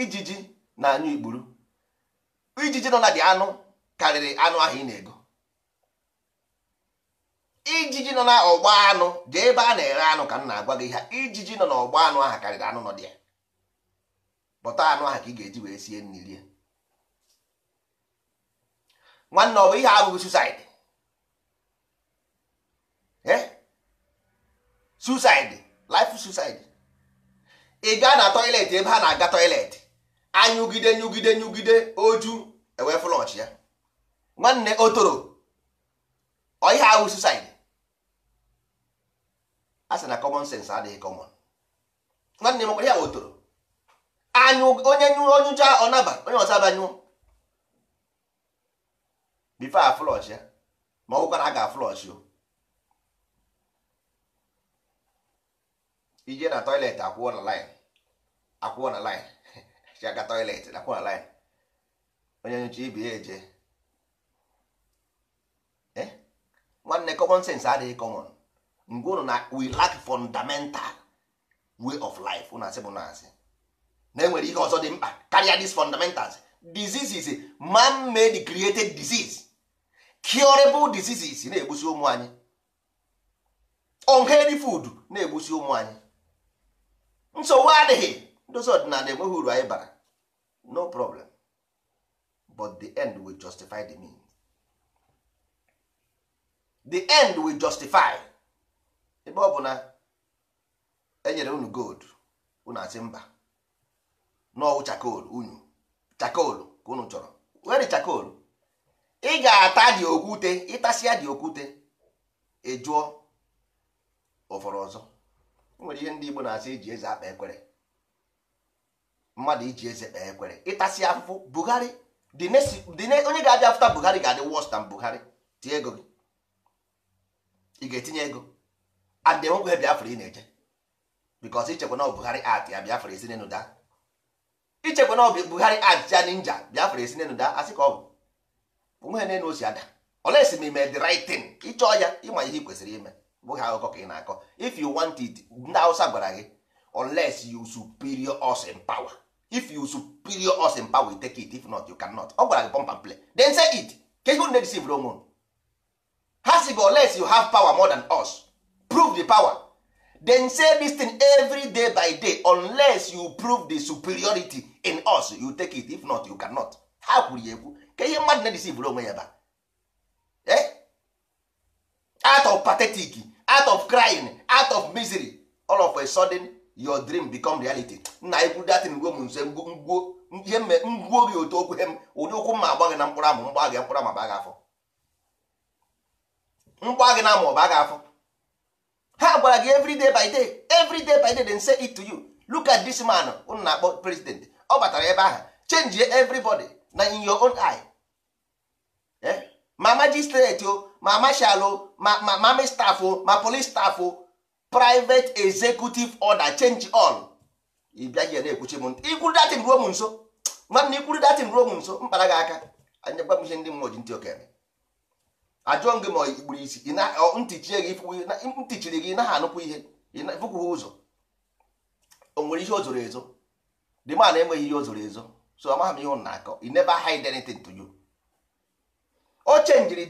ijiji na anyụ ikpuru ijiji nọ na dị anụ karịrị anụ ahụ ị na-ego ijiji nọ na ọgba anụ dị ebe a na eghe anụ ka m na-agwa gị ha ijiji nọ n'ọgba anụ ahụ karịrị anụ nọ dị ya bọta anụ ahụ ka ị ga-eji wee sie nri rie nwanne ọ bụ ihe abụghị susaidi eh? susaidi life susaidi ị gaa na tọiletị ebe ha na-aga tọiletị anyụgide nyụgide nyụgide oju ewee flọch ya nwanne otoro ọ ihe ahụ susaidi asị na common sense adịghị common nwanne m ya wotoro onye nyụọ onyụcha ọnaba onye ọsaba nyụọ a flọsh ya ma ọgwụkwa na a ga-aflọsh o ije na toilet akwụọ na line akwụọ na line chiaga toilet na akwụọ na line onye nyụcha ibi ya eje eh? nwanne adịghị common mgbe ụnụ na we lack fundamental way of life ụnụ asị bụ na asị na enwere ihe ọzọ dị mkpa karịa these fundamentals disease is man made created disease curable diseases na-egbusi ụmụ anyị unhealthy food na-egbusi ụmụ anyị nsogbu adịghị ndozi ọdịnala enweghị uru anyị bara no problem but the end will justify the mean the end will justify ebe ọ bụ na enyere unu gold unu asị mba n'ọwụ chakol unu chakol ka unu chọrọ were chakol ị ga-ata dị okwute ịtasịa dị okwute ejụọ ụfọrọ ọzọ nwere ihe ndị Igbo na-asị iji eze akpa ekwere mmadụ iji eze kpee ekwere ịtasị afụfụ Buhari onye ga-abịa afụta Buhari ga-adị worse than Buhari tie ego gị ị ga-etinye ego and enwekwe biafra ị na eje because ichekwa na Buhari art ya biafra esi n'enu daa ichekwa na ọ Buhari art ya ninja biafra esi n'enu daa asị ka ọ bụ na n'enu osi ada olesi ma ime the right thing ịchọọ ya ịma ihe ị kwesịrị ime bụghị akụkọ ka ị na-akọ if you want it ndị awụsa gwara gị unless you superior us in power if you superior us in power you take it if not you cannot ọ gwara gị pọmpa and play then say it ka ihe na-edesivr onwe ha si gị unless you have power more than us prove the power then say this thing every day by day unless you prove the superiority in us you take it if not you cannot ha kwuru ya ekwu ka ihe mmadụ na-edesivụrụ onwe ya ba eh? out of pathetic out of crying out of misery all of a sudden your dream become reality nna anyị kwuru datin ngwo m nse ngwo ihe mme ngwuo gị otu okwu hem ụdị ụkwụ mma agba na mkpụrụ amụ mgba mkpụrụ amụ ba gị afọ mgba na amụ ọba gị afọ ha gwara gị everyday by day everyday by day dem say it to you look at this man unu na-akpọ president ọ batara ebe ahụ change everybody na in your own eye eh? ma magistrate o ma marshal o ma ma mami staff o ma police staff o private executive order change all ị bịaghị na-ekwuchi m ntị ikwuru datin ruo m nso nwanne ikwuru datin ruo m nso mkpara gị aka anyagwa m ihe ndị mmụọ ji ntị okere ajụọ gị ma ikpuru isi ntichiri gị naghị anụkwu ihe ịfụkwụ ụzọ o nwere ihe o zoro ezo dị ma enweghị ihe o zoro ezo so amaghị m ihe ụnụ na-akọ i never hide anything to you o chenjiri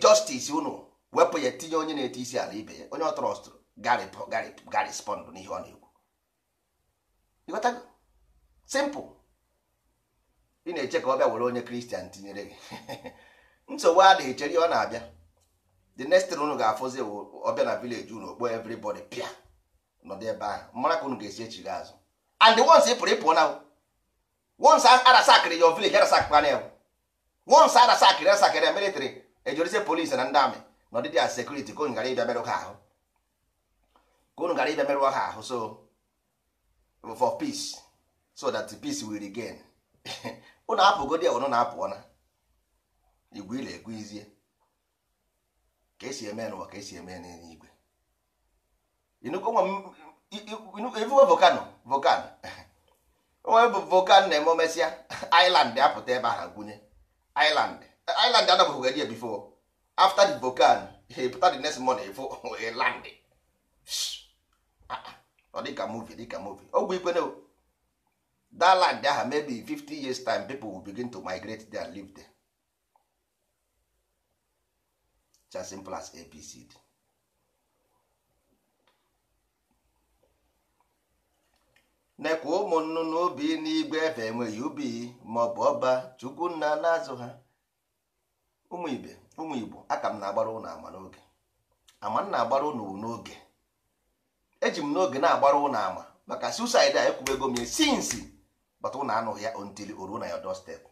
unu wepụ ya tinye onye na-eti isi ala ibe ya onye ọ trọstụ garispond n'ihe ọ na-ekwu simple ị na-eche ka ọ bịa were onye kristian tinyere gị nsogbu a na-echere ọ na-abịa the next thing unu ga-afụzi ọbịa na village unu okpo everybody pịa nọdụ ebe ahụ mara ka unu ga-esi echi echighị azụ and once ị pụrụ ịpụọ na once arasakịrị your village arasakpana ya once arasakịrị arasakịrị ya military ejorize polisi na ndị amị na ọdịdị a sekuriti ka unu gara ịbịa merụ ha ahụ ka unu gara ịbịa merụ ha ahụ so for peace so that the peace will regain unu apụgodi ya unu na-apụọ na igwe ila egwu izie ka esi eme n'ụwa ka esi eme n'eluigwe ifuwe volcano volcano onwe bụ volcano na-eme omesịa island apụta ebe ha gwunye island island adabụghị eji ebifo after the volcano he pụta the next morning ifo land ah, ah. ọ dịka movie dịka movie ogbe ikwe dat land aha maybe 50 years time people will begin to migrate there and live there as simple apc dị nekwa ụmụ nnụnụ obi n'igwe efe enweghị ubi maọbụ ọba chukwu nna na-azụ ha ụmụ ibe ụmụ igbo aka m na-agbara ụnụ ama n'oge ama m na-agbara ụnụ n'oge eji m n'oge na-agbara ụnụ ama maka susid a ego m ya sinsi bata ụnụ anụghị ya ontili oruo na ya step.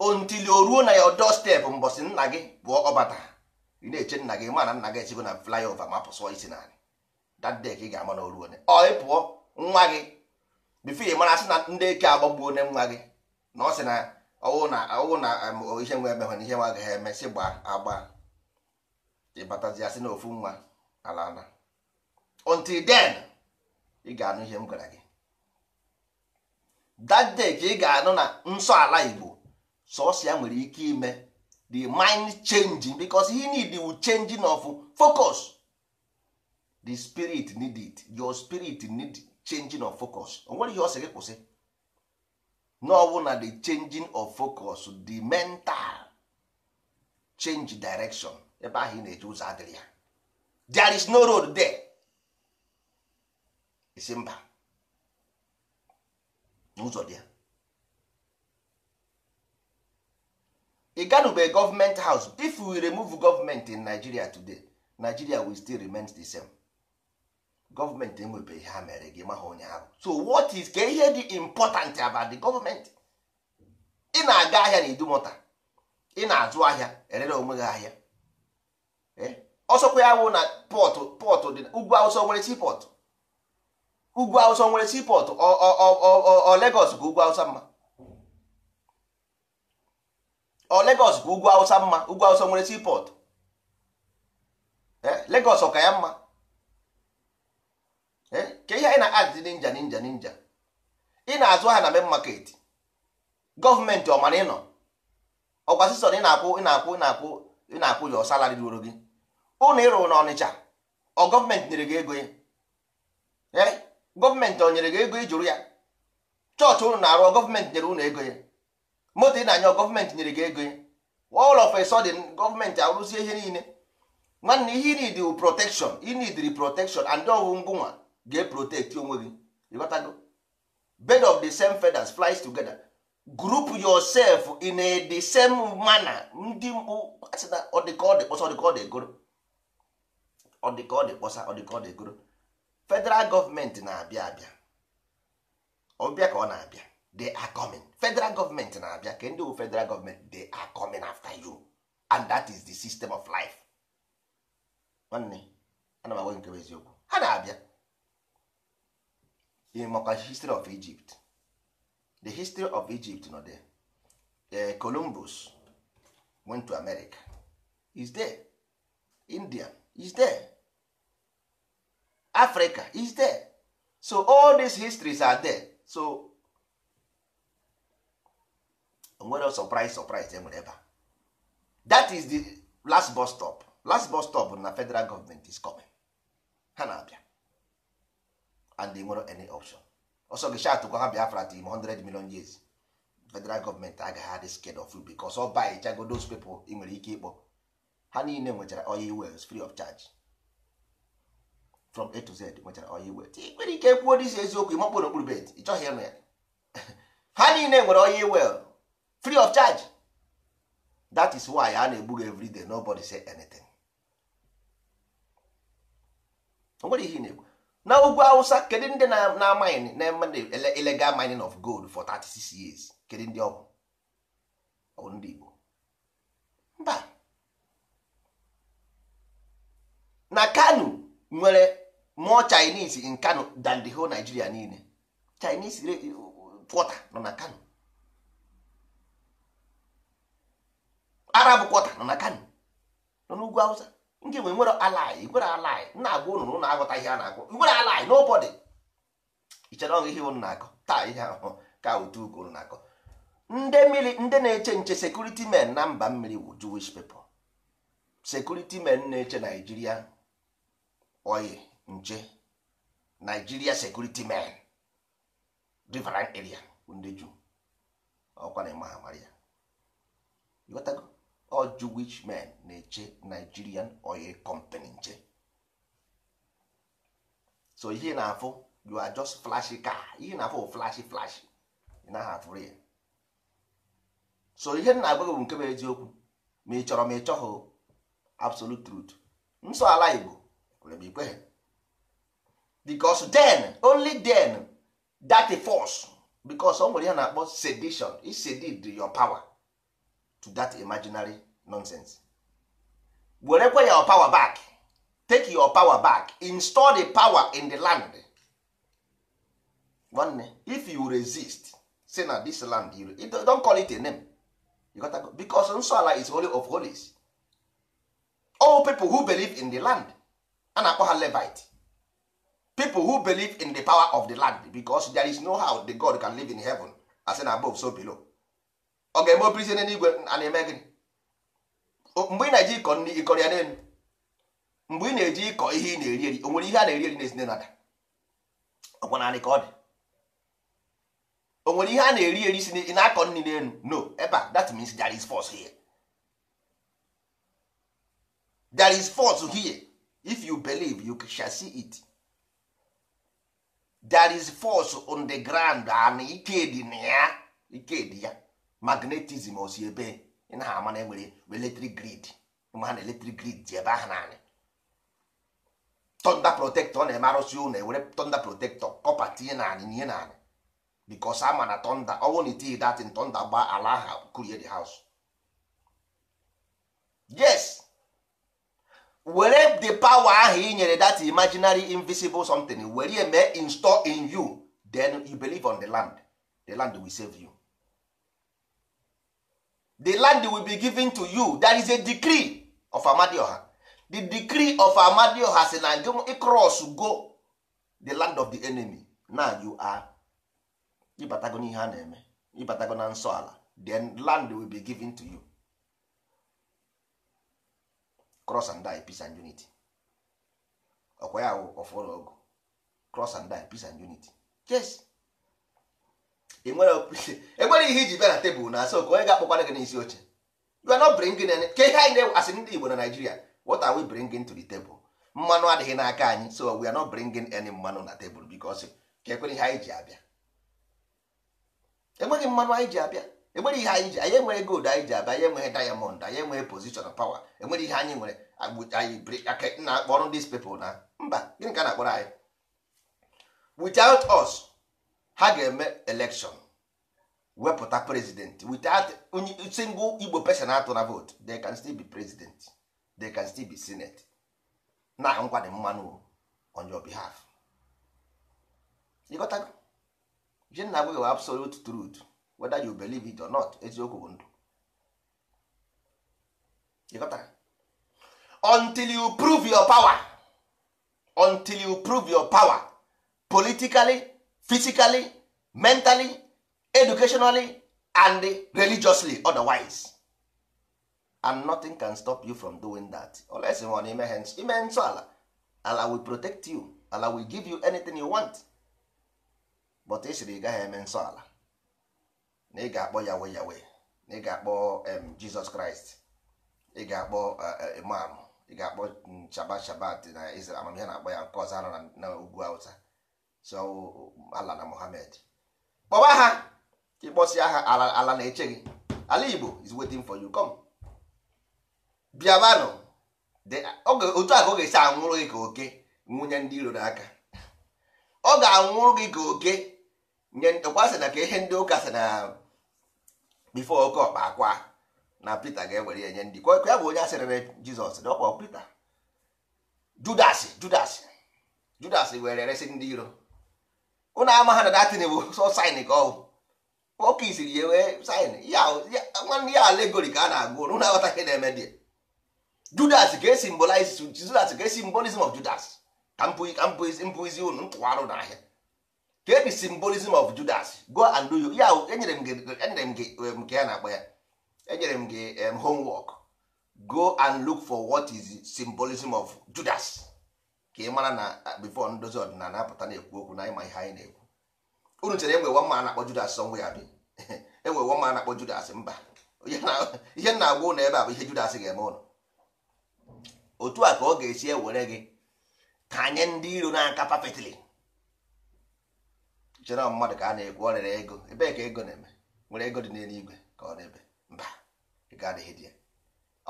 until o ruo na ya your doorstep mbọsị nna gị bụ ọbata ị na-eche nna gị ma nna gị esigo na ova ma pụsụọ isi narị that day ka ị ga-ama na oruo ọ ị pụọ nwa gị bifo ị mara sị na ndị eke agbagbuo onye nwa gị na ọ sị na ọwụ na ọwụ na ihe nwe emehụ na ihe nwa agaghị eme sị gba agba ịbatazi asị na ofu nwa ala ala until then ị ga-anụ ihe m gwara gị that day ka ị ga-anụ na nsọ ala Igbo sọsọ nwere ike ime the mind changing because he need the changing of focus the spirit need it your spirit need changing of focus onwere ihe ọ sị kwụsị n'ọwụ na the changing of focus the mental change direction ebe ahụ ị na-eje ụzọ adịrị ya there is no road there isi mba n'ụzọ dị ya ị ganube gọọmenti haus if we remove government in nigeria today nigeria will still remain the same gọọmenti enwebe ihe ha mere gị maha onye ahụ so what is ka ihe dị important about the government ị na-aga ahịa na idumota ị na-azụ ahịa erere onwe gị ahịa e, ọsọkwa ya wụ na pọtụ dị ugwu awụsa nwere sipọtụ ugwu awụsa nwere sipọtụ ọ Lagos ka ugwu awụsa mma ọ Lagos bụ ugwu awụsa mma ugwu awụsa nwere seaport eh, Lagos ọka ya mma eh, ka ihe anyị na-adị ninja ninja ninja ị na-azụ ha na main market gọọmenti ọ mara ịnọ ọkwa sison ị na-akwụ ị na-akwụ ị na-akwụ ị na-akwụ ya salari ruoro gị ụnụ ịrụ na Ọnịcha ọ gọọmenti nyere gị ego ya eh, gọọmenti ọ nyere gị ego ijụrụ ya chọọchị ụnụ na-arụ gọọmenti nyere ụnụ ego ya moto ị na-anyọ gọọmenti nyere gị ego all of a sudden gọọmenti arụzie ihe niile nwanne ihe inid wu protekshon inidri protekshon and ọwụ ngụnwa ga-eprotekti onwe gị ịghọtago bed of the same feathers flies together group yourself in a the same manner ndị mkpu asịna ọdịkọdị kpọsa ọdịkọdị egoro ọdịkọdị kpọsa ọdịkọdị egoro federal gọọmenti na-abịa abịa ọbịa ka ọ na-abịa they are coming federal government na-abịa ka ndị federal government they are coming after you and that is the system of life nwanne ana m agwa nke eziokwu ha na-abịa ịmakwa history of Egypt the history of Egypt nọ there eh, Columbus went to America is there India is there Africa is there so all these histories are there so onwere surprise surprise e nwere ebe that is the last bus stop last bus stop na federal government is coming ha na-abịa and they nwere any option ọsọ gị shatụkwa ha biafra tim 100 million years federal gọọmenti agaghị adị scared of you because ọ by chago those people ị nwere ike ịkpọ ha niile nwechara oil wells free of charge from a to z nwechara oyi well. ị nwere ike kwuo dị isi eziokwu ịmakpụrụ okpuru bed ị chọghị ịnụ ya ha niile nwere oil well free of charge that is why a na-egbu everyday nobody say anything o nwere ihe na egbu na ugwu awụsa kedu ndị na-amaghị na illegal mining of gold for 36 years kedu ndị ọgwụ ọ ndị Igbo mba na Kano nwere more Chinese in Kano than the whole Nigeria niile Chinese quarter uh, uh, nọ na Kano arab kwọta nọ na kano nọ n'ugwu hausa nke nwe nwere alaị nwere alaị na-agwa ụnụ na aghọta ihe a na-agwọ igwere alaị n'ụbọdị ichere ọgụ ihe ụnụ na-akọ taa ihe ahụhụ ka otu ugo ụnụ na-akọ ndị mmiri ndị na-eche nche sekuriti men na mba mmiri bụ jewish people sekuriti men na-eche naijiria oyi nche naijiria sekuriti men riverine area ndị ju ọkwa na ịma ha mara ya ọ Jewish men na-eche Nigerian oil company nche so ihe na-afụ you are just flashy car ihe na-afụ flashy flashy ị naghị afụrụ ya so ihe na-agwa gị bụ nke bụ eziokwu ma ị chọrọ ma ị chọghị absolute truth nsọ ala Igbo kwere m ikweghị den then only then that force because o nwere ihe na-akpọ sedition isedid your power to that imaginary nonsense werekwa your power back take your power back install the power in the land nwanne if you resist say na this land you don't call it a name you got go because Nsọala is holy of holies all people who believe in the land a na-akpọ ha levite people who believe in the power of the land because there is no how the god can live in heaven as in above so below ọ ga-eme opirisie n'eluigwe a na-eme gịnị mgbe ị na-eji ịkọ nri ịkọrọ ya n'elu mgbe ị na-eji ịkọ ihe ị na-eri eri o nwere ihe a na-eri eri na-esi n'ada ọkwa naanị ka ọ dị o nwere ihe a na-eri eri si ị na-akọ nri n'elu no ebe a that means there is force here there is force here if you believe you shall see it there is force on the ground and ike dị na ya ike dị ya magnetism osi ebe ị ama na enwere eletrik grid ma ha na eletrik grid dị ebe ahụ naanị tọnda protektọ na-eme arụsị ụlọ ewere tọnda protektọ kọpa tinye naanị nye naanị bikos ama na tọnda ọnwụ na itinye datin tọnda gba ala ahụ kurie the house yes were the power ahụ ị nyere that imaginary invisible something were ya mee install in you then you believe on the land the land will save you the land will be given to you that is a decree of amadioha the decree of amadioha si na gị cross go the land of the enemy now you are ịbatago n'ihe eh, a na-eme ịbatago na nsọ ala then land will be given to you cross and die peace and unity ọkwa ya ọfụrụ ọgụ cross and die peace and unity yes enwere e ihe iji bịa na tebụl na asọ ka onye ga-akpọkwara gị n'isi oche you are not bringing any ka ihe anyị na-asị ndị Igbo na Naijiria, what are we bringing to the table mmanụ adịghị n'aka anyị so we are not bringing any mmanụ na tebụl because kekwere ihe anyị ji abịa enweghị mmanụ anyị ji abịa enwere ihe anyị ji anyị enweghị gold anyị ji abịa anyị enweghị diamond anyị enweghị position power enwere ihe anyị nwere na-akpọrọ these people na mba gịnị ka na-akpọrọ anyị without us ha ga-eme election wepụta president without single igbo person atụ na vote they can still be president they can still be senate na nkwado mmanụ on your behalf ịghọtago ji na agwa absolute truth whether you believe it or not eziokwu bụ ndụ until you prove your power until you prove your power politically physically mentally educationally and religiously otherwise and nothing can stop you from doing that unless you ime ime nsọ ala ala will protect you ala will give you anything you want but ị sịrị ị gaghị eme nsọ ala na ị ga-akpọ yawe yawe na ị ga-akpọ jizọs kraịst ị ga-akpọ eh, eh, imam ị ga-akpọ mm, shabat shabat na amamihe na-akpọ ya nke ọzọ na ugwu awụsa so ala na Mohammed kpọba ha ịkpọsịa ha ala na-eche gị ala Igbo is waiting for you come bịabanụ otu a ka ọ ga-esi anwụrụ gị ka oke nwunye ndị iro n'aka ọ ga-anwụrụ gị ka oke nye ọkwa sị na ka ihe ndị ụka sị na bifo oke ọkpa akwa na Pita ga-ewere ya nye ndị kwa ya bụ onye asịrị asịrịrị Jizọs ọkpọ Pita Judas Judas Judas were resị ndị iro ụnụ ama ha na datin bụ sọ sain ka ọwụ ọka isiri ya wee sain nwanne ya alegori ka a na-agụ ụnụ na-aghọta ihe na-eme dị judas ka esi of judas ka esi mbolism of judas ka mpụizi ụnụ ntụwarụ n'ahịa ka ebi simbolism of judas go and do you ya enyere m gị e um, nke ya na-akpọ ya enyere m gị um, homework go and look for what is symbolism of judas ka ị mara na uh, bifo ndozi ọdịnala apụta na-ekwu okwu na ịma ihe anyị na-ekwu unu chere enwe nwa a na-akpọ Judas sọ ya bi enwe nwa na-akpọ Judas mba ihe na-agwa ụlọ ebe a bụ ihe Judas ga-eme ụlọ otu a ka ọ ga-esi ewere gị ka anyị ndị iro n'aka papetili chere mmadụ ka a na-ekwu ọ ego ebee ka ego na-eme nwere ego dị n'eluigwe ka ọ na-ebe mba ga adịghị dị ya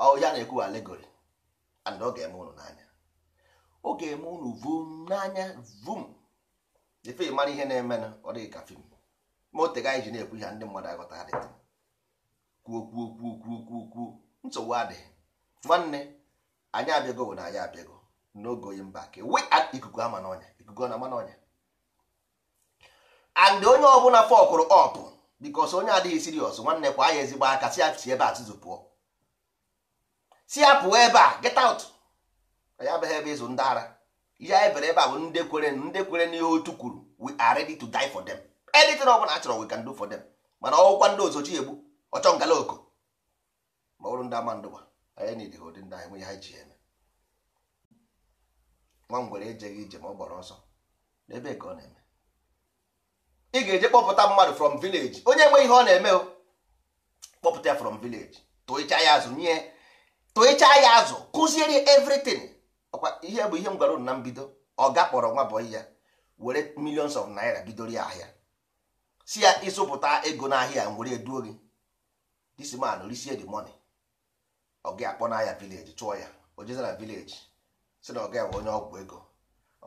ọ ya na-ekwu alegori and ọ ga-eme ụlọ n'anya ọ ga-eme unu vum n'anya vum efe mara ihe na-eme na ọ dịghị ka fim ma o tega anyị ji na-ekwu ihe ndị mmadụ aghọta adịghị kwuo kwuo kwuo kwuo kwuo kwuo nsogbu adịghị nwanne anyị abịago bụ na anyị abịago n'oge oyi mba ka we ikuku ama n'ọnya ikuku na ama n'ọnya and onye ọbụla fọkụrụ ọpụ bikos onye adịghị sirios nwanne kwa anyị ezigbo aka si ebe a tụzụ pụọ si apụ ebe a get out anyị abịaghị ebe ịzụ ndị ara ihe anyị bere ebe a bụ ndị kwere ndị kwere n'ihe otu kwuru we are ready to die for them anything ọ bụla achọrọ we can do for them mana ọgwụkwa ndị ozochi egbu ọchọ ngala oko ma bụrụ ndị ama ndụwa anyị na idighi ụdị ndị anyị nwe ha ji eme nwa ngwere ejeghị ije ma ọ gbara ọsọ n'ebe ka ọ na-eme ị ga-eje kpọpụta mmadụ from village onye nwe ihe ọ na-eme o kpọpụta ya from village tụịcha ya azụ nye tụịcha ya azụ kụziere everything ọkwa ihe bụ ihe m gwara unu na mbido ọ ga kpọrọ nwa bọyị ya were millions of naira bidoro ya ahịa si ya ịzụpụta ego n'ahịa m were eduo gị this man risie the money ọ akpọ n'ahịa village chụọ ya o jezara village si na ọ ga onye ọgwụ ego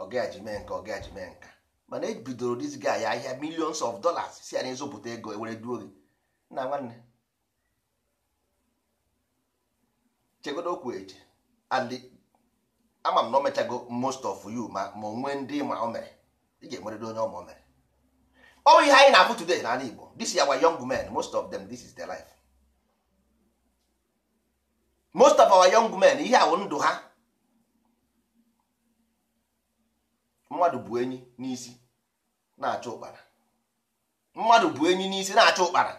ọ ji mee nka ọ ga ji mee nka mana ebidoro this guy ya ahịa millions of dollars si ya na ịzụpụta ego e were duo gị nna nwanne chegodo okwu eje ama m na o mechago most of you ma ma onwe ndị ma o mere ị ga-enwerịrị onye ma o mere ọ bụ ihe anyị na-abụ today n'ala Igbo this is our young men most of them this is their life most of our young men ihe awụ ndụ ha mmadụ bụ enyi n'isi na acha ụkpara mmadụ bụ enyi n'isi na acha ụkpara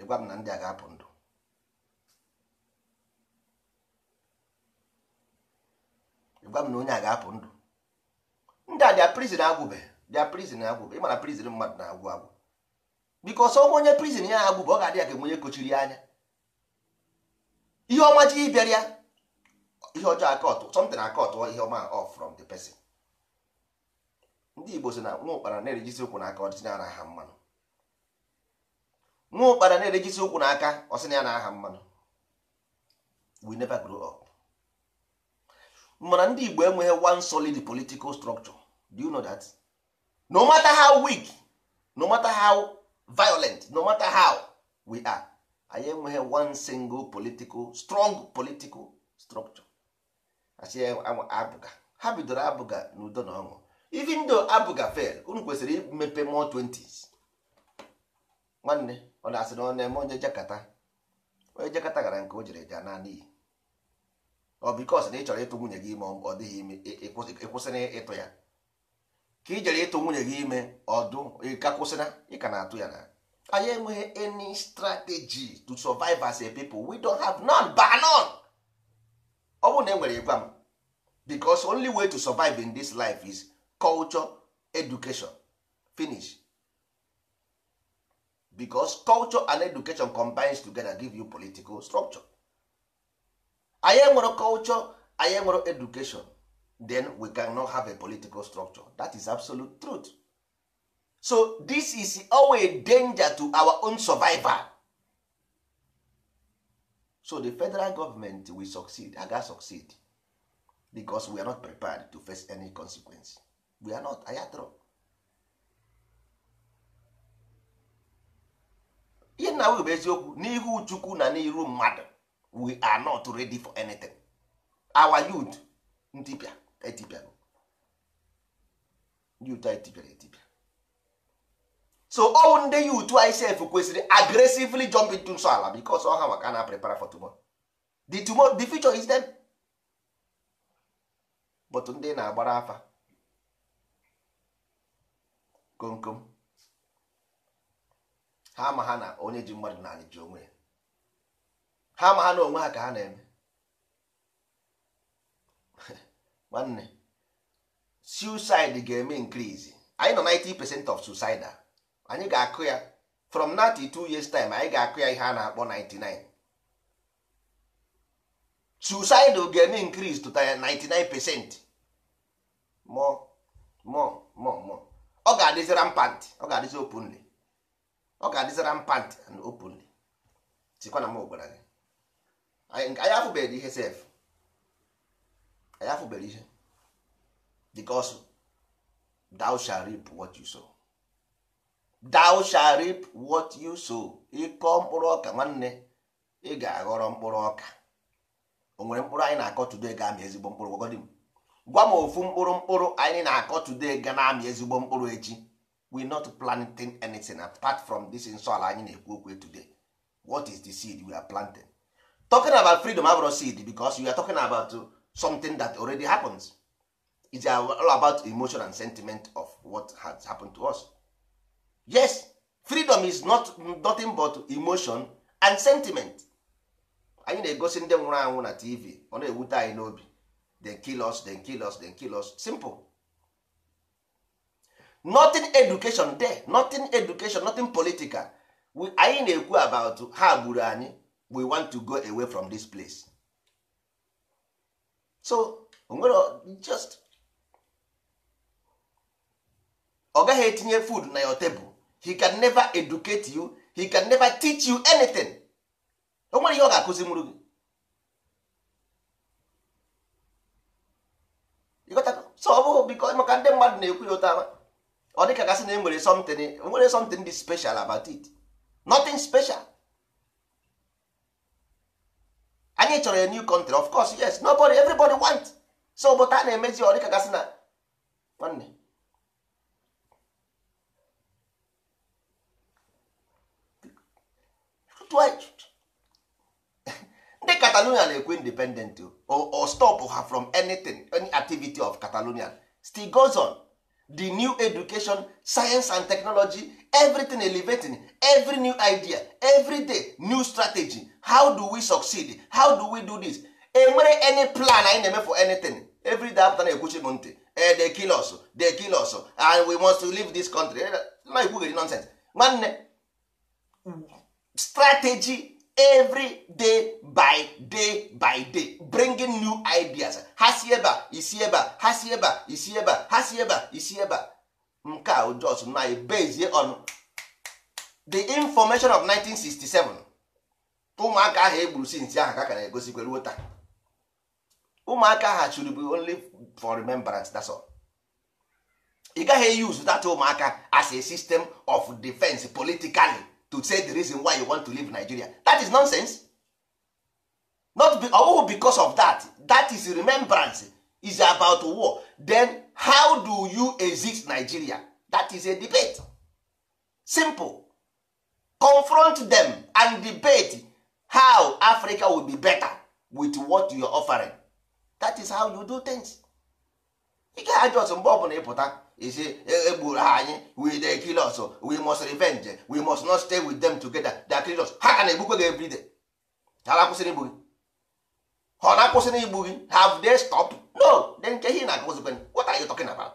ịgwa m na ndị a ga-apụ ndụ gwa m na onye a ga-apụ ndụ ndị a dia prizin agwụbe dia prizin agwụbe ịmana prizin mmadụ na-agwụ agwụ bikos ọnwa onye prizin ya agwụbe ọ ga-adị ya ka onye e kochiri ya anya ihe ọma ji ịbịara ya ihe ọjọọ akọtụ something akọtụ ihe ọma off from the person ndị igbo si na nwa ụkpara na-erejisi ụkwụ n'aka ọ ọdịsị na aha mmanụ nwa ụkpara na-erejisi ụkwụ n'aka ọsị na ya na aha mmanụ we never grow up mana ndị Igbo enweghị one solid political structure do you know that no matter how weak no matter how violent no matter how we are anyị enweghị one single political strong political structure asị abụga ha bidoro abụga n'udo na ọṅụ even though abụga fail unu kwesịrị imepe more 20s nwanne ọ na-asị na ọ na-eme onye jakata onye jakata gara nke o jere ja naanị ọ bikos e, e, e, na ị chọrọ ịtụ nwunye gị ime ọ dịghị ime ịkwụsịna ịtụ ya ka jere ịtụ nwunye gị ime ọdụ ka kwụsịna ị ka na-atụ ya na anyị enweghị any strategy to survive as a people we don't have none but none ọ bụrụ na e nwere ịgwa m because only way to survive in this life is culture education finish because culture and education combines together give you political structure anyị enwere culture anyị education then we can no have a political structure that is absolute truth so this is always danger to our own survival so the federal government will succeed aga succeed because we are not prepared to face any consequence we are not ayatro ihe nna bụ eziokwu n'ihu chukwu na n'iru mmadụ we are not ready for anything our youth ntipịa etipịa youth etipịara etipia so owu nde youth isef kwesịrị aggressively jump into nso ala because ọha maka na prepare for tomorrow the tomorrow the future is them but ndị na-agbara afa komkom ha ma ha na onye ji mmadụ na anyị ji onwe ya ha ma ha na onwe ha ka ha na-eme nwanne suicide ga-eme increase anyị nọ 90 percent of suicide anyị ga-akụ ya from 92 years time anyị ga-akụ ya ihe a na-akpọ 99 suicide ga-eme increase to 99 percent more more more more ọ ga-adịzi rampant ọ ga-adịzi openly ọ ga-adịzi rampant and openly sikwa na m gwara gị anyị afụbeghị ihe sef anyị afụbeghị ihe because thou shall reap what you sow thou shall what you sow ịkọ mkpụrụ ọka nwanne ị ga-aghọrọ mkpụrụ ọka o nwere mkpụrụ anyị na-akọ today ga-amị ezigbo mkpụrụ gwagọdị m gwa m ofu mkpụrụ mkpụrụ anyị na-akọ today ga na-amị ezigbo mkpụrụ echi we not planting anything apart from this nsọala anyị na-ekwu okwu today what is the seed we are planting talking about freedom abụrụ seed because you are talking about something that already happens is all about emotion and sentiment of what has happened to us yes freedom is not nothing but emotion and sentiment anyị na-egosi ndị nwụrụ anwụ na tv ọ na-ewute anyị n'obi then kill us then kill us then kill us simple nothing education there nothing education nothing political anyị na-ekwu about ha gburu anyị we want to go away from this place so onwere just ọ gaghị etinye food na your table he can never educate you he can never teach you anything o nwere ihe ọ ga-akụzi mụrụ gị so ọ bụghị because maka ndị mmadụ na-ekwu ya ụta ọ dịka gasị na e nwere something e nwere something dị special about it nothing special anyị chọrọ a new country of course yes nobody everybody want so but a na-emezi ọ dịka gasị na nwanne ndị catalonia na-ekwe independent o ha from anything of catalonia still goes the new education science and technology everything elevating every new idea every day new strategy how do we succeed how do we do this enwere any plan anyị na-eme for anything every day after na-ekwuchi m ntị eh, they kill us they kill us and we must leave this country eh, na ekwugheri nonsense nwanne strategy every day by day by day bringing new ideas ha si ebe isi ebe ha si ebe isi ebe ha si ebe a isi ebe nke a on the information of 1967 ụmụaka ahụ egburu since ahụ ka ka na-egosikwa taa ụmụaka ahụ chụrụ bụ only for remembrance that's all ị gaghị use that ụmụaka as a system of defense politically to say the reason why you want to leave nigeria that is nonsense not be, oh, because of that that is remembrance is about war then how do you exist nigeria that is a debate simple confront them and debate how africa will be better with what you are offering that is how you do things you gaghị ajụ ọsọ mgbe ọbụla ịpụta isi egburu e ha anyị we dey kill us we must revenge we must not stay with them together they kill ha ka na-egbukwe gị every ha na-akwụsịrị igbu gị ha na-akwụsịrị igbu gị have they stop no de nke ihe na-agụzikwe what are you talking about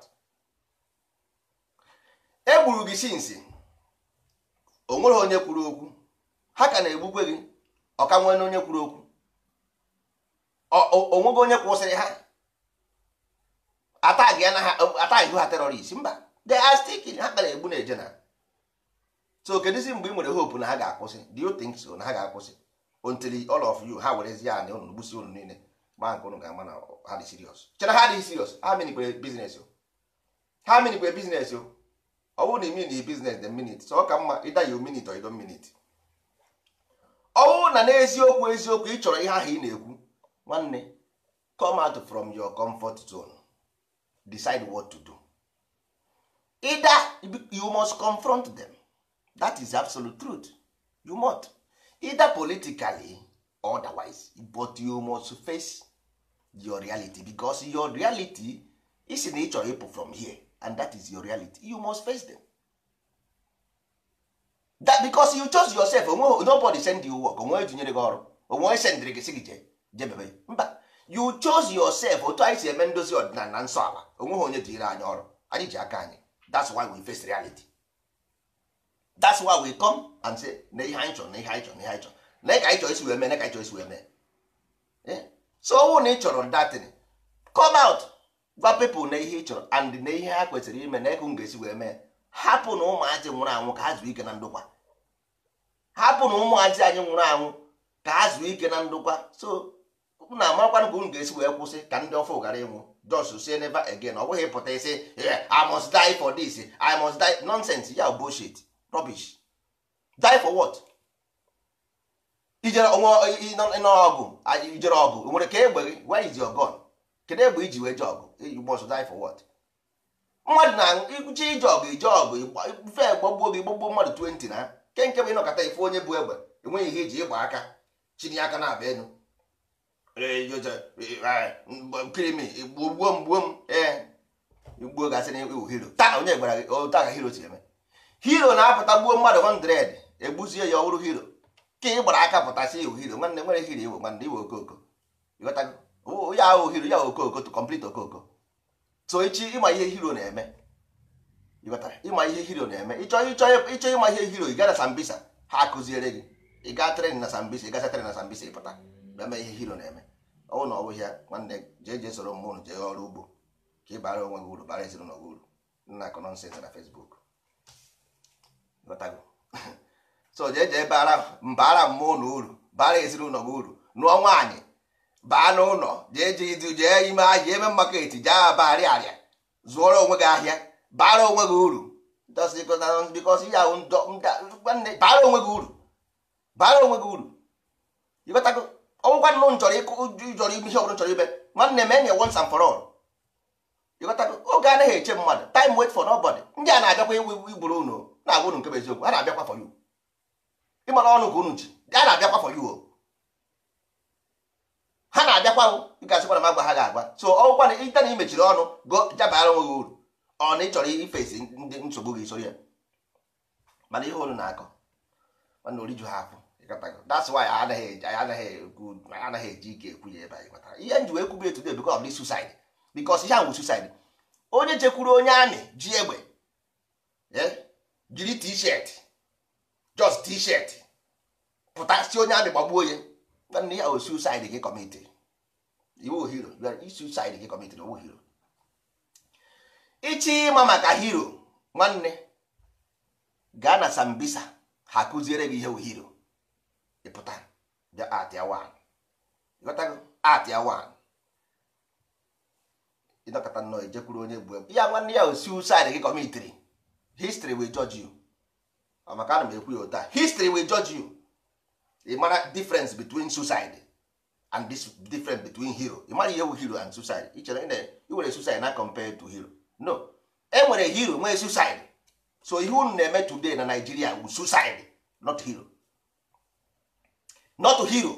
egburu gị sinsi o nwere onye kwuru okwu ha ka na-egbukwe gị ọka nwere onye kwuru okwu onweghị onye kwụsịrị ha atag ya na ha oh, atag ha terrorist mba de are sticking ha kpara egbu na ejena so kedụzi mgbe ị nwere hope na ha ga-akwụsị do you think so na ha ga-akwụsị until all of you ha werezi ya na unu gbusi unu niile ma nke unu ga-ama na ha dị serious chere ha dị serious ha minikwere biznes o ha minikwere biznes o ọ bụrụ na imi na biznes the minute so ọ ka mma ịda ya minute or ido minute ọ bụrụ na n'eziokwu eziokwu ị chọrọ ihe ahụ ị na-ekwu nwanne come out from your comfort zone decide what to do either you must confront them that is absolute truth you must either politically or otherwise but you must face your reality because your reality is in each ịpụ from here and that is your reality you must face them that because you chose yourself onwe nobody send you work onwe ejinyere gị ọrụ onwe sendịrị gị sị gị jee jebebe mba you chose yourself otu anyị si eme ndozi ọdịnala na nsọ ala onweghị onye dịire anyị ọrụ anyị ji aka anyị that's why we face reality that's why we come and say na ihe anyị chọrọ na ihe anyị chọrọ na ihe anyị chọrọ na ka anyị chọrọ isi wee mee na ka anyị chọrọ isi wee mee eh? so ọnwụ na ị chọrọ datin come out gwa people na ihe ị chọrọ and na ihe ha kwesịrị ime na ego m ga-esi wee mee hapụ na ụmụazị nwụrụ anwụ ka ha zuo ike na ndokwa hapụ na ụmụazị anyị nwụrụ anwụ ka ha zuo ike na ndokwa so unu amarakwa ka unu ga-esi wee kwụsị ka ndị ọfọ ghara ịnwụ just say never again ọ bụghị ịpụta isi i must die for this i must die nonsense ya bullshit rubbish die for what ijere ọgụ ijere ọgụ nwere ka egbe gị where is your gun kedu egbe iji wee je ọgụ eh, you must die for what mmadụ na-eje ije ọgụ ije ọgụ fe gbagbuo gị gbagbuo mmadụ 20 na nke ịnọkọta ife onye bụ egbe enweghị ihe eji ịgba aka chiri aka na-abịa enu gbuo e, mgbuo m ee igbuo gasịrị iwu e, hiro taa onye gwara gị otu hiro si eme hiro na-apụta gbuo mmadụ 100 egbuzie ya ọ hiro ka ị gbara aka pụtasị iwu hiro nwanne nwere hiro iwe nwanne iwe okoko ya ahụ hiro ya okooko to complete okooko. so echi ịma ihe hiro na-eme ịma ihe hiro na-eme ịchọ ịchọ ịma ihe hiro ị gara Sambisa ha akụziere gị ịga gaa tren na Sambisa ị gasa tren na Sambisa ịpụta eme ihe hiro na-eme ọnwụ na ọwụ ya nwanne jee jee soro mmụ ụnụ jee ọrụ ugbo ka ị bara onwe gị uru bara ezinụlọ gị uru nna akụ nọnsens na fesbuk so jee jee bara mbara mmụọ uru bara ezinụlọ gị uru nụọ nwaanyị baa n'ụlọ jee jee jee ime ahịa eme jee arịa zụọrọ onwe gị ahịa bara onwe gị uru bara onwe gị uru bara onwe gị uru ọnwụkwa nụ chọrọ ịjọrọ ihe ọbụla chọrọ ime nwanne m enye once and for all oge anaghị eche mmadụ time wait for nobody ndị a na-abịakwa iwu iwu igburu unu na-agwa unu nke bụ eziokwu ha na-abịakwa for you ịmara ọnụ ka unu ji a na-abịakwa for you ha na-abịakwa gasịkwa na m agwa ha ga-agwa so ọgwụkwa na ite na imechiri ọnụ go jabara onwe gị uru ọ na ị chọrọ ifesi ndị nsogbu gị soro ya mana ihe olu na-akọ mana oriju ha afọ that's why i anaghị ekwu anaghị eji ike ekwu ya ebe ihe m wee kwubi etu suicide ihe ahụ suicide onye chekwuru onye amị ji egbe eh? jiri t just pụta si onye amị gbagbuo ya nwanne ya o oh, suicide gị kọmiti iwu hero suicide maka hero nwanne gaa na sambisa ha kụziere gị ihe hero ịpụta bịa atịa wan ịghọtago atịa wan ịnọkọta nnọọ ejekwuru onye gbuo ya nwanne ya osi suicide gị kọmitiri history will judge you maka ana m ekwu ya ụta history will judge you ị mara difference between suicide and this difference between hero ị mara ihe bụ hero and suicide ị chere ị were suicide na compare to hero no e nwere hero nwee suicide so ihe unu na-eme today na Nigeria bụ suicide not hero not hero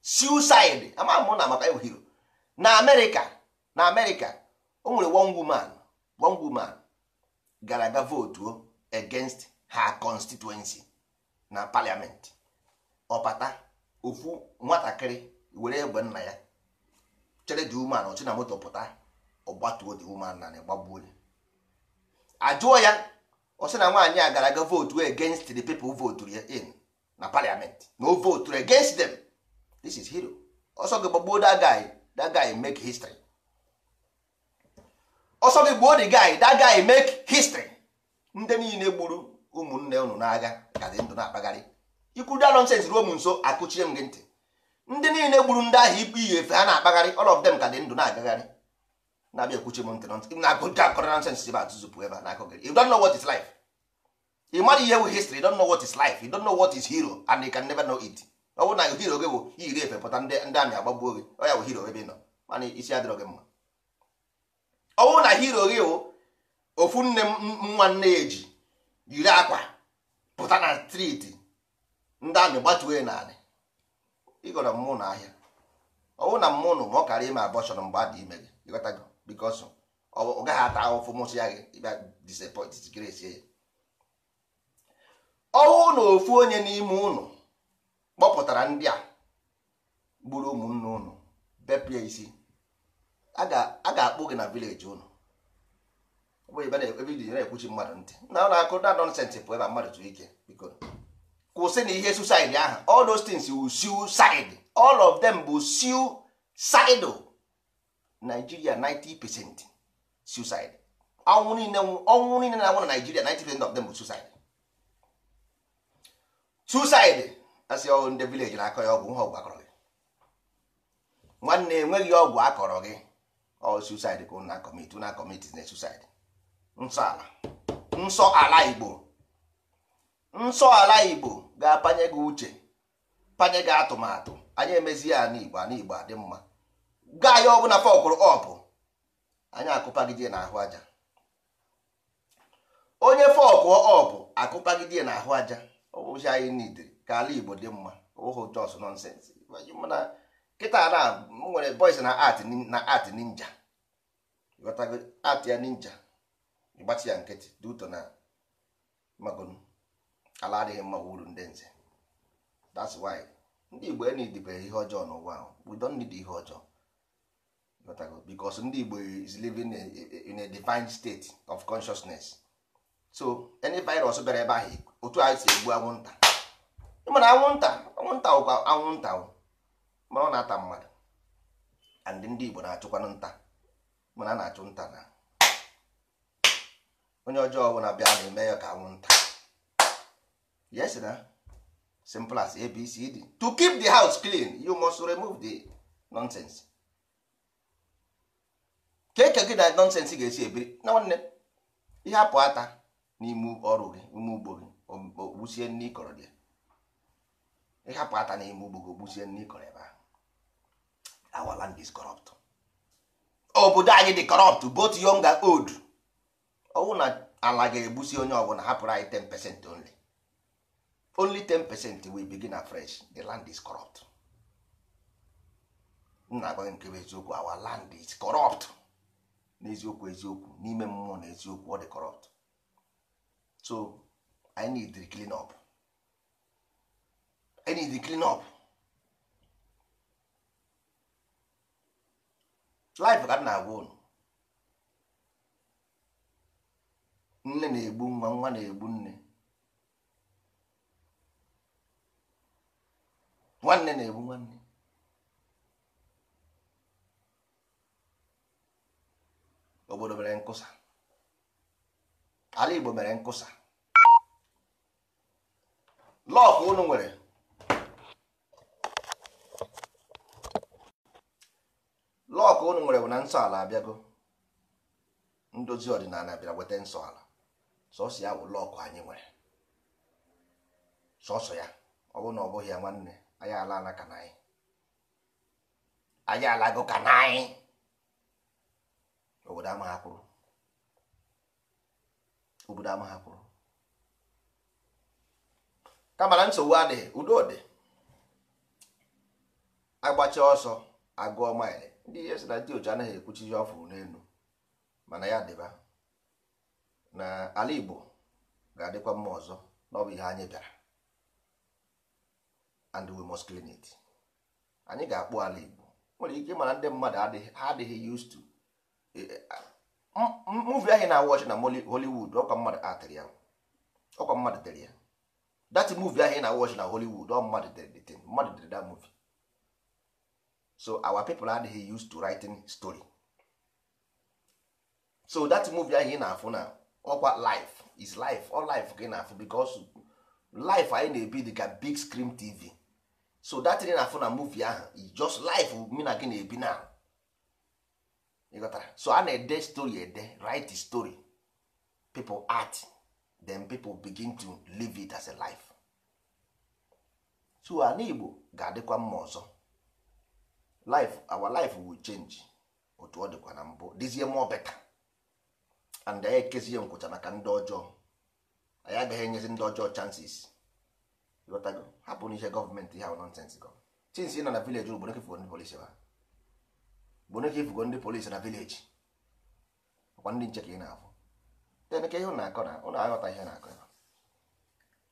suicide ama m na maka ịbụ hero na amerịka na amerịka o nwere one woman one woman gara aga votuo oh, against her constituency na parliament ọpata ofu nwatakịrị were egbe nna ya chere dị woman ọchị na moto pụta ọgbatuo dị woman na gbagbuo ajụọ ya ọ sị na nwaanyị a gara aga votuo against the people voturu ya in na parliament no vote against them this is hero ọsọ gị gbagbuo that guy that guy make history ọsọ gị gbuo the guy that guy make history ndị niile gburu ụmụnne unu n'agha ka ndụ na-akpagharị ikwuru da nonsense ruo m nso akụchie m gị ntị ndị niile gburu ndị ahụ ikpe ihe efe ha na-akpagharị all of them ka dị ndụ na-agagharị na-abịa ekwuchi m ntị na akụkọ akọrọ nonsense ebe atụzụpụ ebe a na akụgịrị you don't know what is life ị mara ihe wụ history don know what is life you don't know what is hero and you can never know it ọ na hero gị bụ iyiri efe pụta ndị amị gị ọ bụ ị nọ mana isi adịrọ gị mma ọ na hero gị bụ ofu nne nwa nne ya eji yiri akwa pụta na striti ndị amị gbatuo ya naanị ịgọrọ mmụ na ahịa ọ bụrụ na mmụ nụ ma ọ kara ime abọshọn mgbe a dị ime gị ọ gaghị ata ahụfụ ya gị ya ọnwụ na ofu onye n'ime ụnụ kpọpụtara ndị a gburu ụmụnne ụnụ bepụ isi a ga-akpụ gị na vileji ụnụ na-ekwuchi mmadụ ntị na na-akụ na nọnsensị pụ ebe mmadụ ike biko kwụsị na ihe suicide ahụ ọl of them bụ 90 ọnwụ niile na-anwụ na Nigeria 90 of suicide asị ọgwụ ndị vileji na-akọ ya ọgwụ nha ọgwụ akọrọ gị nwanne enweghị ọgwụ akọrọ gị ọ suicide ka na kọmiti na kọmiti na suicide nsọ ala nsọ ala igbo nsọ ala igbo ga-apanye gị uche panye gị atụmatụ anyị emezi ya ana igbo ana igbo adị mma gaa ya ọbụla fọkụrụ ọpụ anyị akụpagide na ahụ aja onye fọkụọ ọpụ akụpagide na ahụ aja ụzi anyị nidiri ka ala igbo dị mma ụhụ jos nonsens mana kịta na nwere boys na art na art ninja ịghọtago art ya ninja ịgbatị ya nkịtị dị ụtọ na magonu ala adịghị mma uru ndị nze that's why ndị igbo enidibere ihe ọjọọ n'ụwa ahụ we don't need ihe ọjọọ ịghọtago because ndị igbo is living in a, in a divine state of consciousness so any virus bịara ebe ahụ otu anyị si egbu anwụnta ịmana anwụnta anwụnta ụkwa anwụnta mana ọ na-ata mmadụ and ndị Igbo na-achụkwanụ nta mana a na-achụ nta na onye ọjọọ ọbụla bịa na-eme ya ka anwụnta yes na simple as ABCD to keep the house clean you must remove the nonsense ka eke gị na nonsense ga-esi ebiri na nwanne ihe apụ ata n'ime ọrụ gị ime ugbo gị ogbusie nne ịkọrọ dị ịhapụ ata n'ime ugbo gị ogbusie nne ịkọrọ ebe ahụ our land is corrupt obodo anyị dị corrupt both young and old ọwụ na ala ga-egbusi onye ọbụla hapụrụ anyị 10 only only 10 wey we begin afresh the land is corrupt nna agwa nke bụ eziokwu our land is corrupt n'eziokwu eziokwu n'ime mmụọ na eziokwu ọ dị corrupt so I need to clean up I need to clean up life ka m na-agwa unu nne na-egbu nwa nwa na-egbu nne nwanne na-egbu nwanne obodo mere nkụsa ala Igbo mere nkụsa lọk unu nwere lọk unu nwere bụ na nsọ ala abịago ndozi ọdịnala bịara weta nsọ ala sọsọ ya bụ lọkụ anyị nwere sọsọ ya ọ bụ na ọ bụghị ya nwanne anyị ala ka na anyị alago ka na anyị obodo amaghị akwụrụ. kama nsogbu adịghị udo dị agbacha ọsọ agụọ maịlị ndị ihe sị na ndị oji anaghị ekwuchi ihe ọfụrụ n'elu mana ya dịba na ala Igbo ga-adịkwa mma ọzọ na ọ bụ ihe anyị bịara and we must clean it anyị ga-akpụ ala Igbo nwere ike mana ndị mmadụ ha adịghị used to e, e, movie anyị na-awọchi na Hollywood ọkwa mmadụ tere ya that movie ahụ na watch na Hollywood don mmadụ dere the thing mmadụ dere that movie so our people adịghị used to writing story so that movie ahụ ị na-afụ na ọkwa life is life all life ka ị na-afụ because life anyị na-ebi dị ka big screen TV so that thing na-afụ na movie ahụ is e just life mi na gị na-ebi na so a na-ede story ede write story people art then people begin to live it as a life so ala Igbo ga-adịkwa mma ọzọ life our life will change otu ọ dịkwa na mbụ dizie more better and anyị ekezie nkwụcha maka ndị ọjọọ anyị agaghị enyezi ndị ọjọọ chances ịghọtago hapụ n'ihe gọọmenti ha nonsens gọ chins ị nọ na vileji rụ gbonekefugo ndị polisi ha gbonekefugo ndị polisi na vileji ọkwa ndị nche ka ị na-afụ ka ihe na-akọ na ụnụ aghọta ihe na-akọ ebe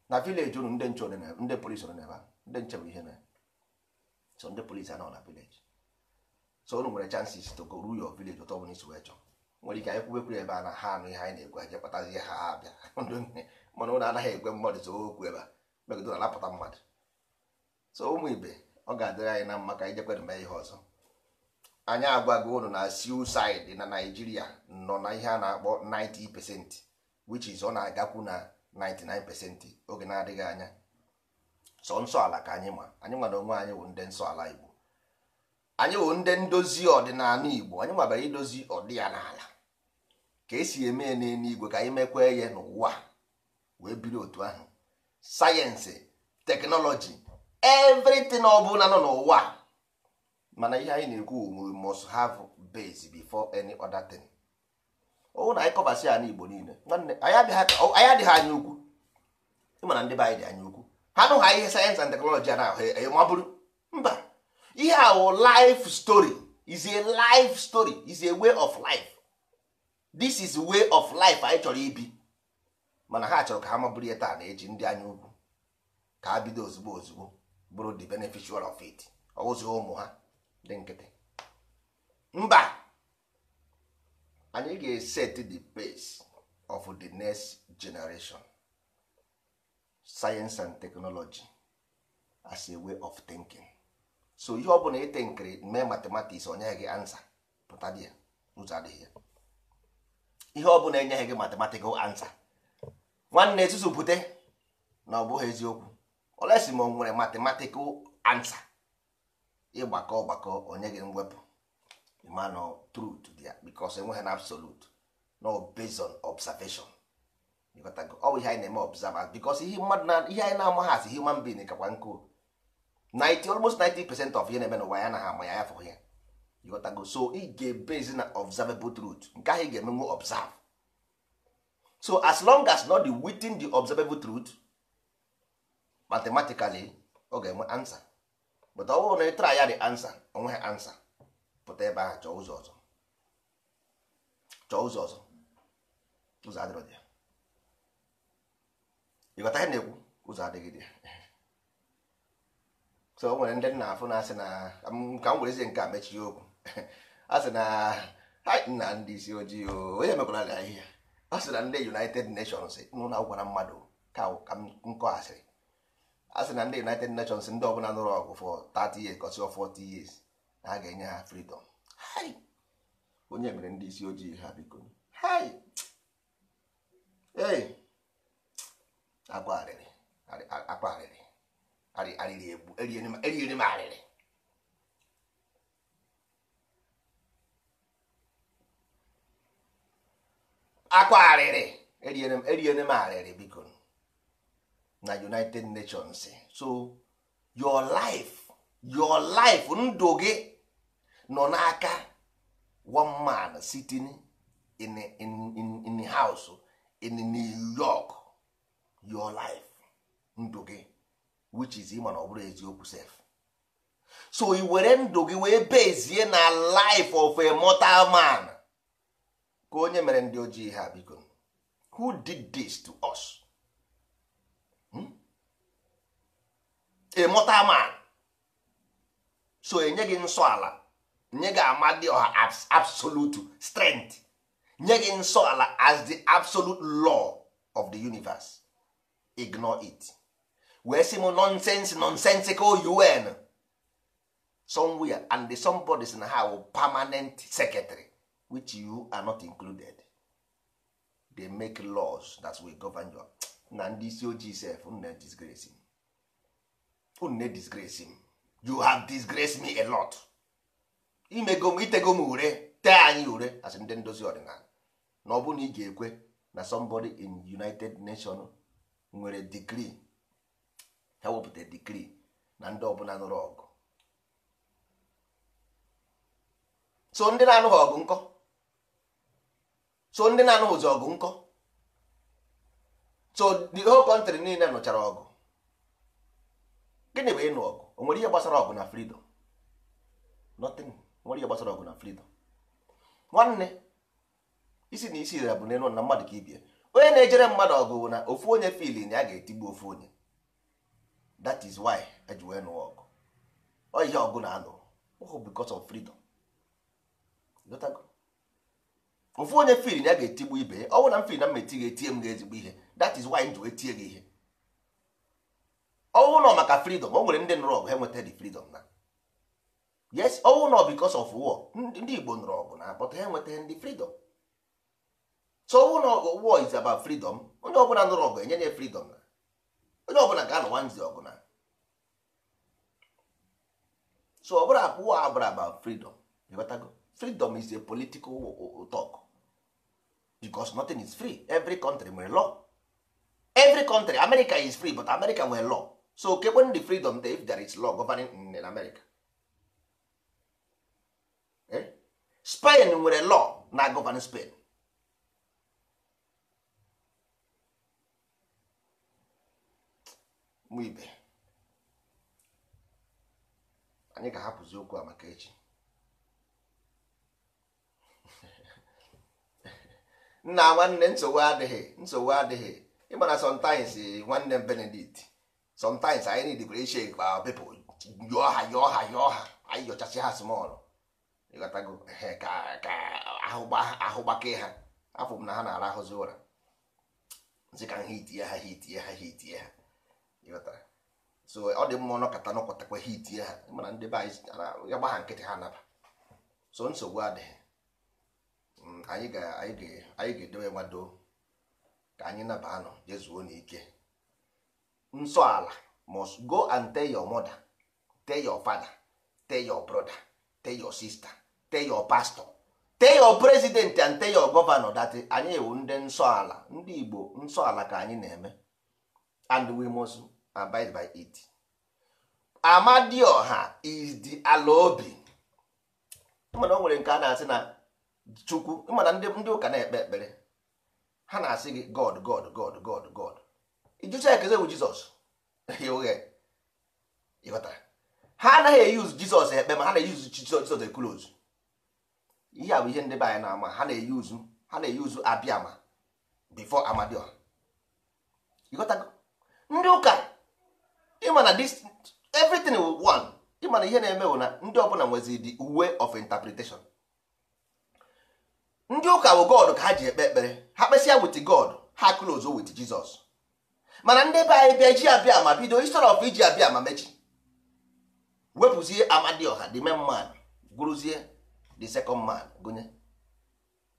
na vileji ụnụ ndị nche ndị polisi na n'ebe ndị nche bụ ihe na so ndị polisi anọ na vileji so ụnụ nwere chances to go ruo your village ụtọ bụ n'isi wee chọọ nwere ike anyị kwubekwuru ebe a na ha anụ ihe anyị na-ekwu anyị kpatazi ha abịa mana ụnụ anaghị ekwe mmadụ so okwu ebe a megide na-anapụta mmadụ so ụmụ ibe ọ ga-adịrị anyị na mma ka anyị jekwere mee ihe ọzọ anyị agwago ụlọ na suicide na Naịjirịa nọ na ihe a na-akpọ 90% which is ọ na-agakwu na 99% oge na-adịghị anya sọ nsọ ala ka anyị ma anyị nwa na onwe anyị wụ ndị nsọ ala Igbo anyị wụ ndị ndozi ọdịnala Igbo anyị nwabara idozi ọdị ya ka esi eme n'eluigwe ka anyị mekwa ya n'ụwa wee biri otu ahụ sayensị teknọlọji everything ọ bụla nọ n'ụwa mana ihe anyị na-ekwu we must have base before any other thing ọwụ na anyị kọbasị ya n'Igbo niile anyị adịghị anya ukwu ịmana ndị be anyị dị anya ukwu ha nụgha ihe sayensị and teknọlọji a na-ahụ e, e, mabụrụ mba ihe a wụ life story is a life story is a way of life this is way of life anyị chọrọ ibi mana ha chọrọ ka ha mabụrụ ihe taa na-eji ndị anya ugwu ka ha bido ozugbo ozugbo bụrụ the beneficial of it ọwụzi ụmụ ha dị nkịtị mba anyị ga-eset the pace of the next generation science and technology as a way of thinking so ihe ọ bụla ite nkiri mee matematiks onye gị ansa pụta dị ihe ọ bụla enyeghị gị matematikal ansa nwanne ezuzu bute na ọ bụghị eziokwu olesi ma ọ nwere matematikal ansa ịgbakọ ọgbakọ onye gị mwepụ mana truth dị ya because enweghị na absolute no based on observation ọ bụ ihe anyị na-eme observance because ihe mmadụ na ihe anyị na-amaghị asị human being kakwa nkụ 90 almost 90 percent of ihe na-eme n'ụwa ya na ama ya ya fụghị ya ịghọtago so ị ga-ebezi na observable truth nke ahụ ị ga-emenwu observe so as long as not the within the observable truth mathematically ọ ga-enwe ansa. but ọ bụrụ na ị try ya the answer onweghị ansa pụta ebe ahụ chọọ ụzọ ọzọ chọọ ụzọ ọzọ ụzọ adịrọ dị ya ịghọta ihe na-ekwu ụzọ adịghị dị ya so o nwere ndị nna afụ na asị na ka m werezie nke a mechie okwu a sị na ha nna ndị isi ojii onye emekwara anyị ahịhịa ọ sị na ndị United Nations nụ na gwara mmadụ ka m kọghasịrị asị na ndị united nations ndị ọbụla nụrụ ọgụ for 30 years kọsịọ 40 years na a ga-enye ha freedom onye mere ndị isi ojii ha biko ee akwa arịrị akwa arịrị arịrị egbu eriere m arịrị akwa arịrị eriere m arịrị biko na united nations so your life your life ndụ gị nọ n'aka one man sitting in, in, in, in house in new york your life ndụ gị which is ịma na ọ bụrụ eziokwu sef so i were ndụ gị wee bezie na life of a mortal man ka onye mere ndị ojii ha biko who did this to us? ịmụta man so enye gị nsọ ala nye gị amadioha absolute strength nye gị nsọ ala as the absolute law of the universe ignore it wee sị m nonsense nonsensical un somewhere and the somebody na ha permanent secretary which you are not included they make laws that will govern your na ndị isi ojii sef na disgrace unu na-edisgrace m you have disgrace me a lot imego m itego m ure tee anyị ure as ndị ndozi ọdịnala na ọ bụ na ị ga-ekwe na somebody in united nation nwere degree ha wepụta degree na ndị ọbụla nụrụ ọgụ so ndị na-anụghị ọgụ nkọ so ndị na-anụghịzi ọgụ nkọ so the whole country niile nụchara ọgụ gịnị bụ ịnụ ọgụ o nwere ihe gbasara ọgụ na freedom nothing nwere ihe gbasara ọgụ na freedom nwanne isi na isi bụ n'elu na mmadụ ka ibie onye na-ejere mmadụ ọgụ bụ na ofu onye fili na ya ga-etigbu ofu onye that is why eji wee nụọ ọgụ ọ ihe ọgụ na-anụ ọgụ because of freedom ofu onye fili na ya ga-etigbu ibe ya ọ bụ na m fili na mma etighi etie m ga-ezigbo ihe that is why m ji wee tie gị ihe ọwụ nọ maka freedom o nwere ndị nụrụ ọgụ ha enweta dị freedom na yes ọwụ nọ because of war ndị Igbo nụrụ ọgụ na but ha enweta ndị freedom so ọwụ nọ war is about freedom onye ọbụla nụrụ ọgụ enye ya freedom na onye ọbụla ga-anụwa nzi ọgụ na so ọbụla abụọ abụrụ about freedom ịghọtago freedom is a political talk because nothing is free every country nwere law every country America is free but America nwere law so kekwen the freedom dey if there is law governing in america eh? spain nwere law na govern spain ibe anyị ga-ahapụzi okwu a maka echi nna nwanne nsogbu adịghị nsogbu adịghị na sometimes eh, nwanne benedict sometimes anyị need differentiate our uh, people yọọ ha yọọ ha yọọ ha anyị yọchasị ha small ịghọtago ka ka ahụgbakee ha afọ m mm, na ha na ara ahụzi ụra nzi ka ha itie ha hitie ha hitie ha ịghọtara so ọ dị mma n'ọkọta nọkọtakwa ha itie ha mana ndị be anyị ya gba ha nkịtị ha naba so nsogbu adịghị anyị ga-edowe nwado ka anyị naba anọ jezuo n'ike nsọala must go and tell your mother tell your father tell your brother tell your sister tell your pastor tell your president and tell your governor that anyị ewu ndị nsọala ndị igbo nsọala ka anyị na-eme and we must abide by it amadioha is the ala obi mana o nwere nke a na-asị na chukwu mana ndị ụka na-ekpe ekpere ha na-asị gị god god god god god jụcha ekeze bụ jizọs ha anaghị eyuz jizọs ekpe ma ha na-eyuz jizọs ekule ozu ihe a bụ ihe ndị be anyị na-ama ha na-eyuzu ha na-eyuzu abịama bifo amadioha ịghọtago ndị ụka ịma na this everything will one ịma na ihe na-eme bụ na ndị ọbụla nwezi the way of interpretation ndị ụka bụ god ka ha ji ekpe ekpere ha kpesịa wit god ha close wit jizọs mana ndị be anyị bịa ji abịa ma bido history of iji abịa ma mechi wepụzie amadioha the main man gwuruzie the second man gụnye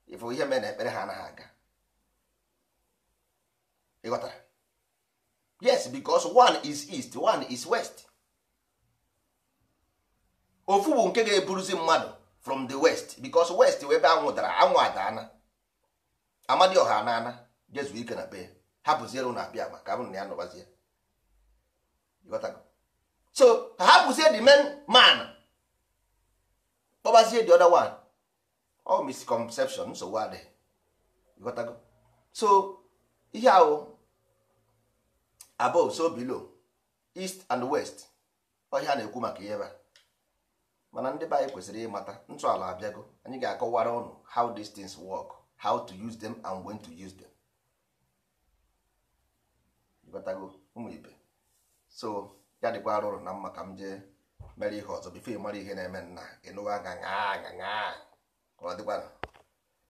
ifụ ihe mere na ekpere ha anaghị aga ịghọtara yes because one is east one is west ofu bụ nke ga-eburuzi mmadụ from the west because west wee be anwụ dara anwụ adaana amadioha anaana jezu ike na be ha hapụziere ụnụ abịa agba ka m na ya nọbazie so ka ha pụzie the main man kpọbazie the other one ọ all misconception nsogbu adịghị ịghọtago so ihe ahụ above so below east and west ọhịa na-ekwu maka ihe ebe mana ndị be anyị kwesịrị ịmata ntọala abịago anyị ga-akọwara ọnụ how these things work how to use them and when to use them ịghọtago ụmụ ibe so ya dịkwa arụrụ na mma ka m jee mere ihe ọzọ bifo ị mara ihe na-eme nna ịnụwa aa ka ọ dịkwara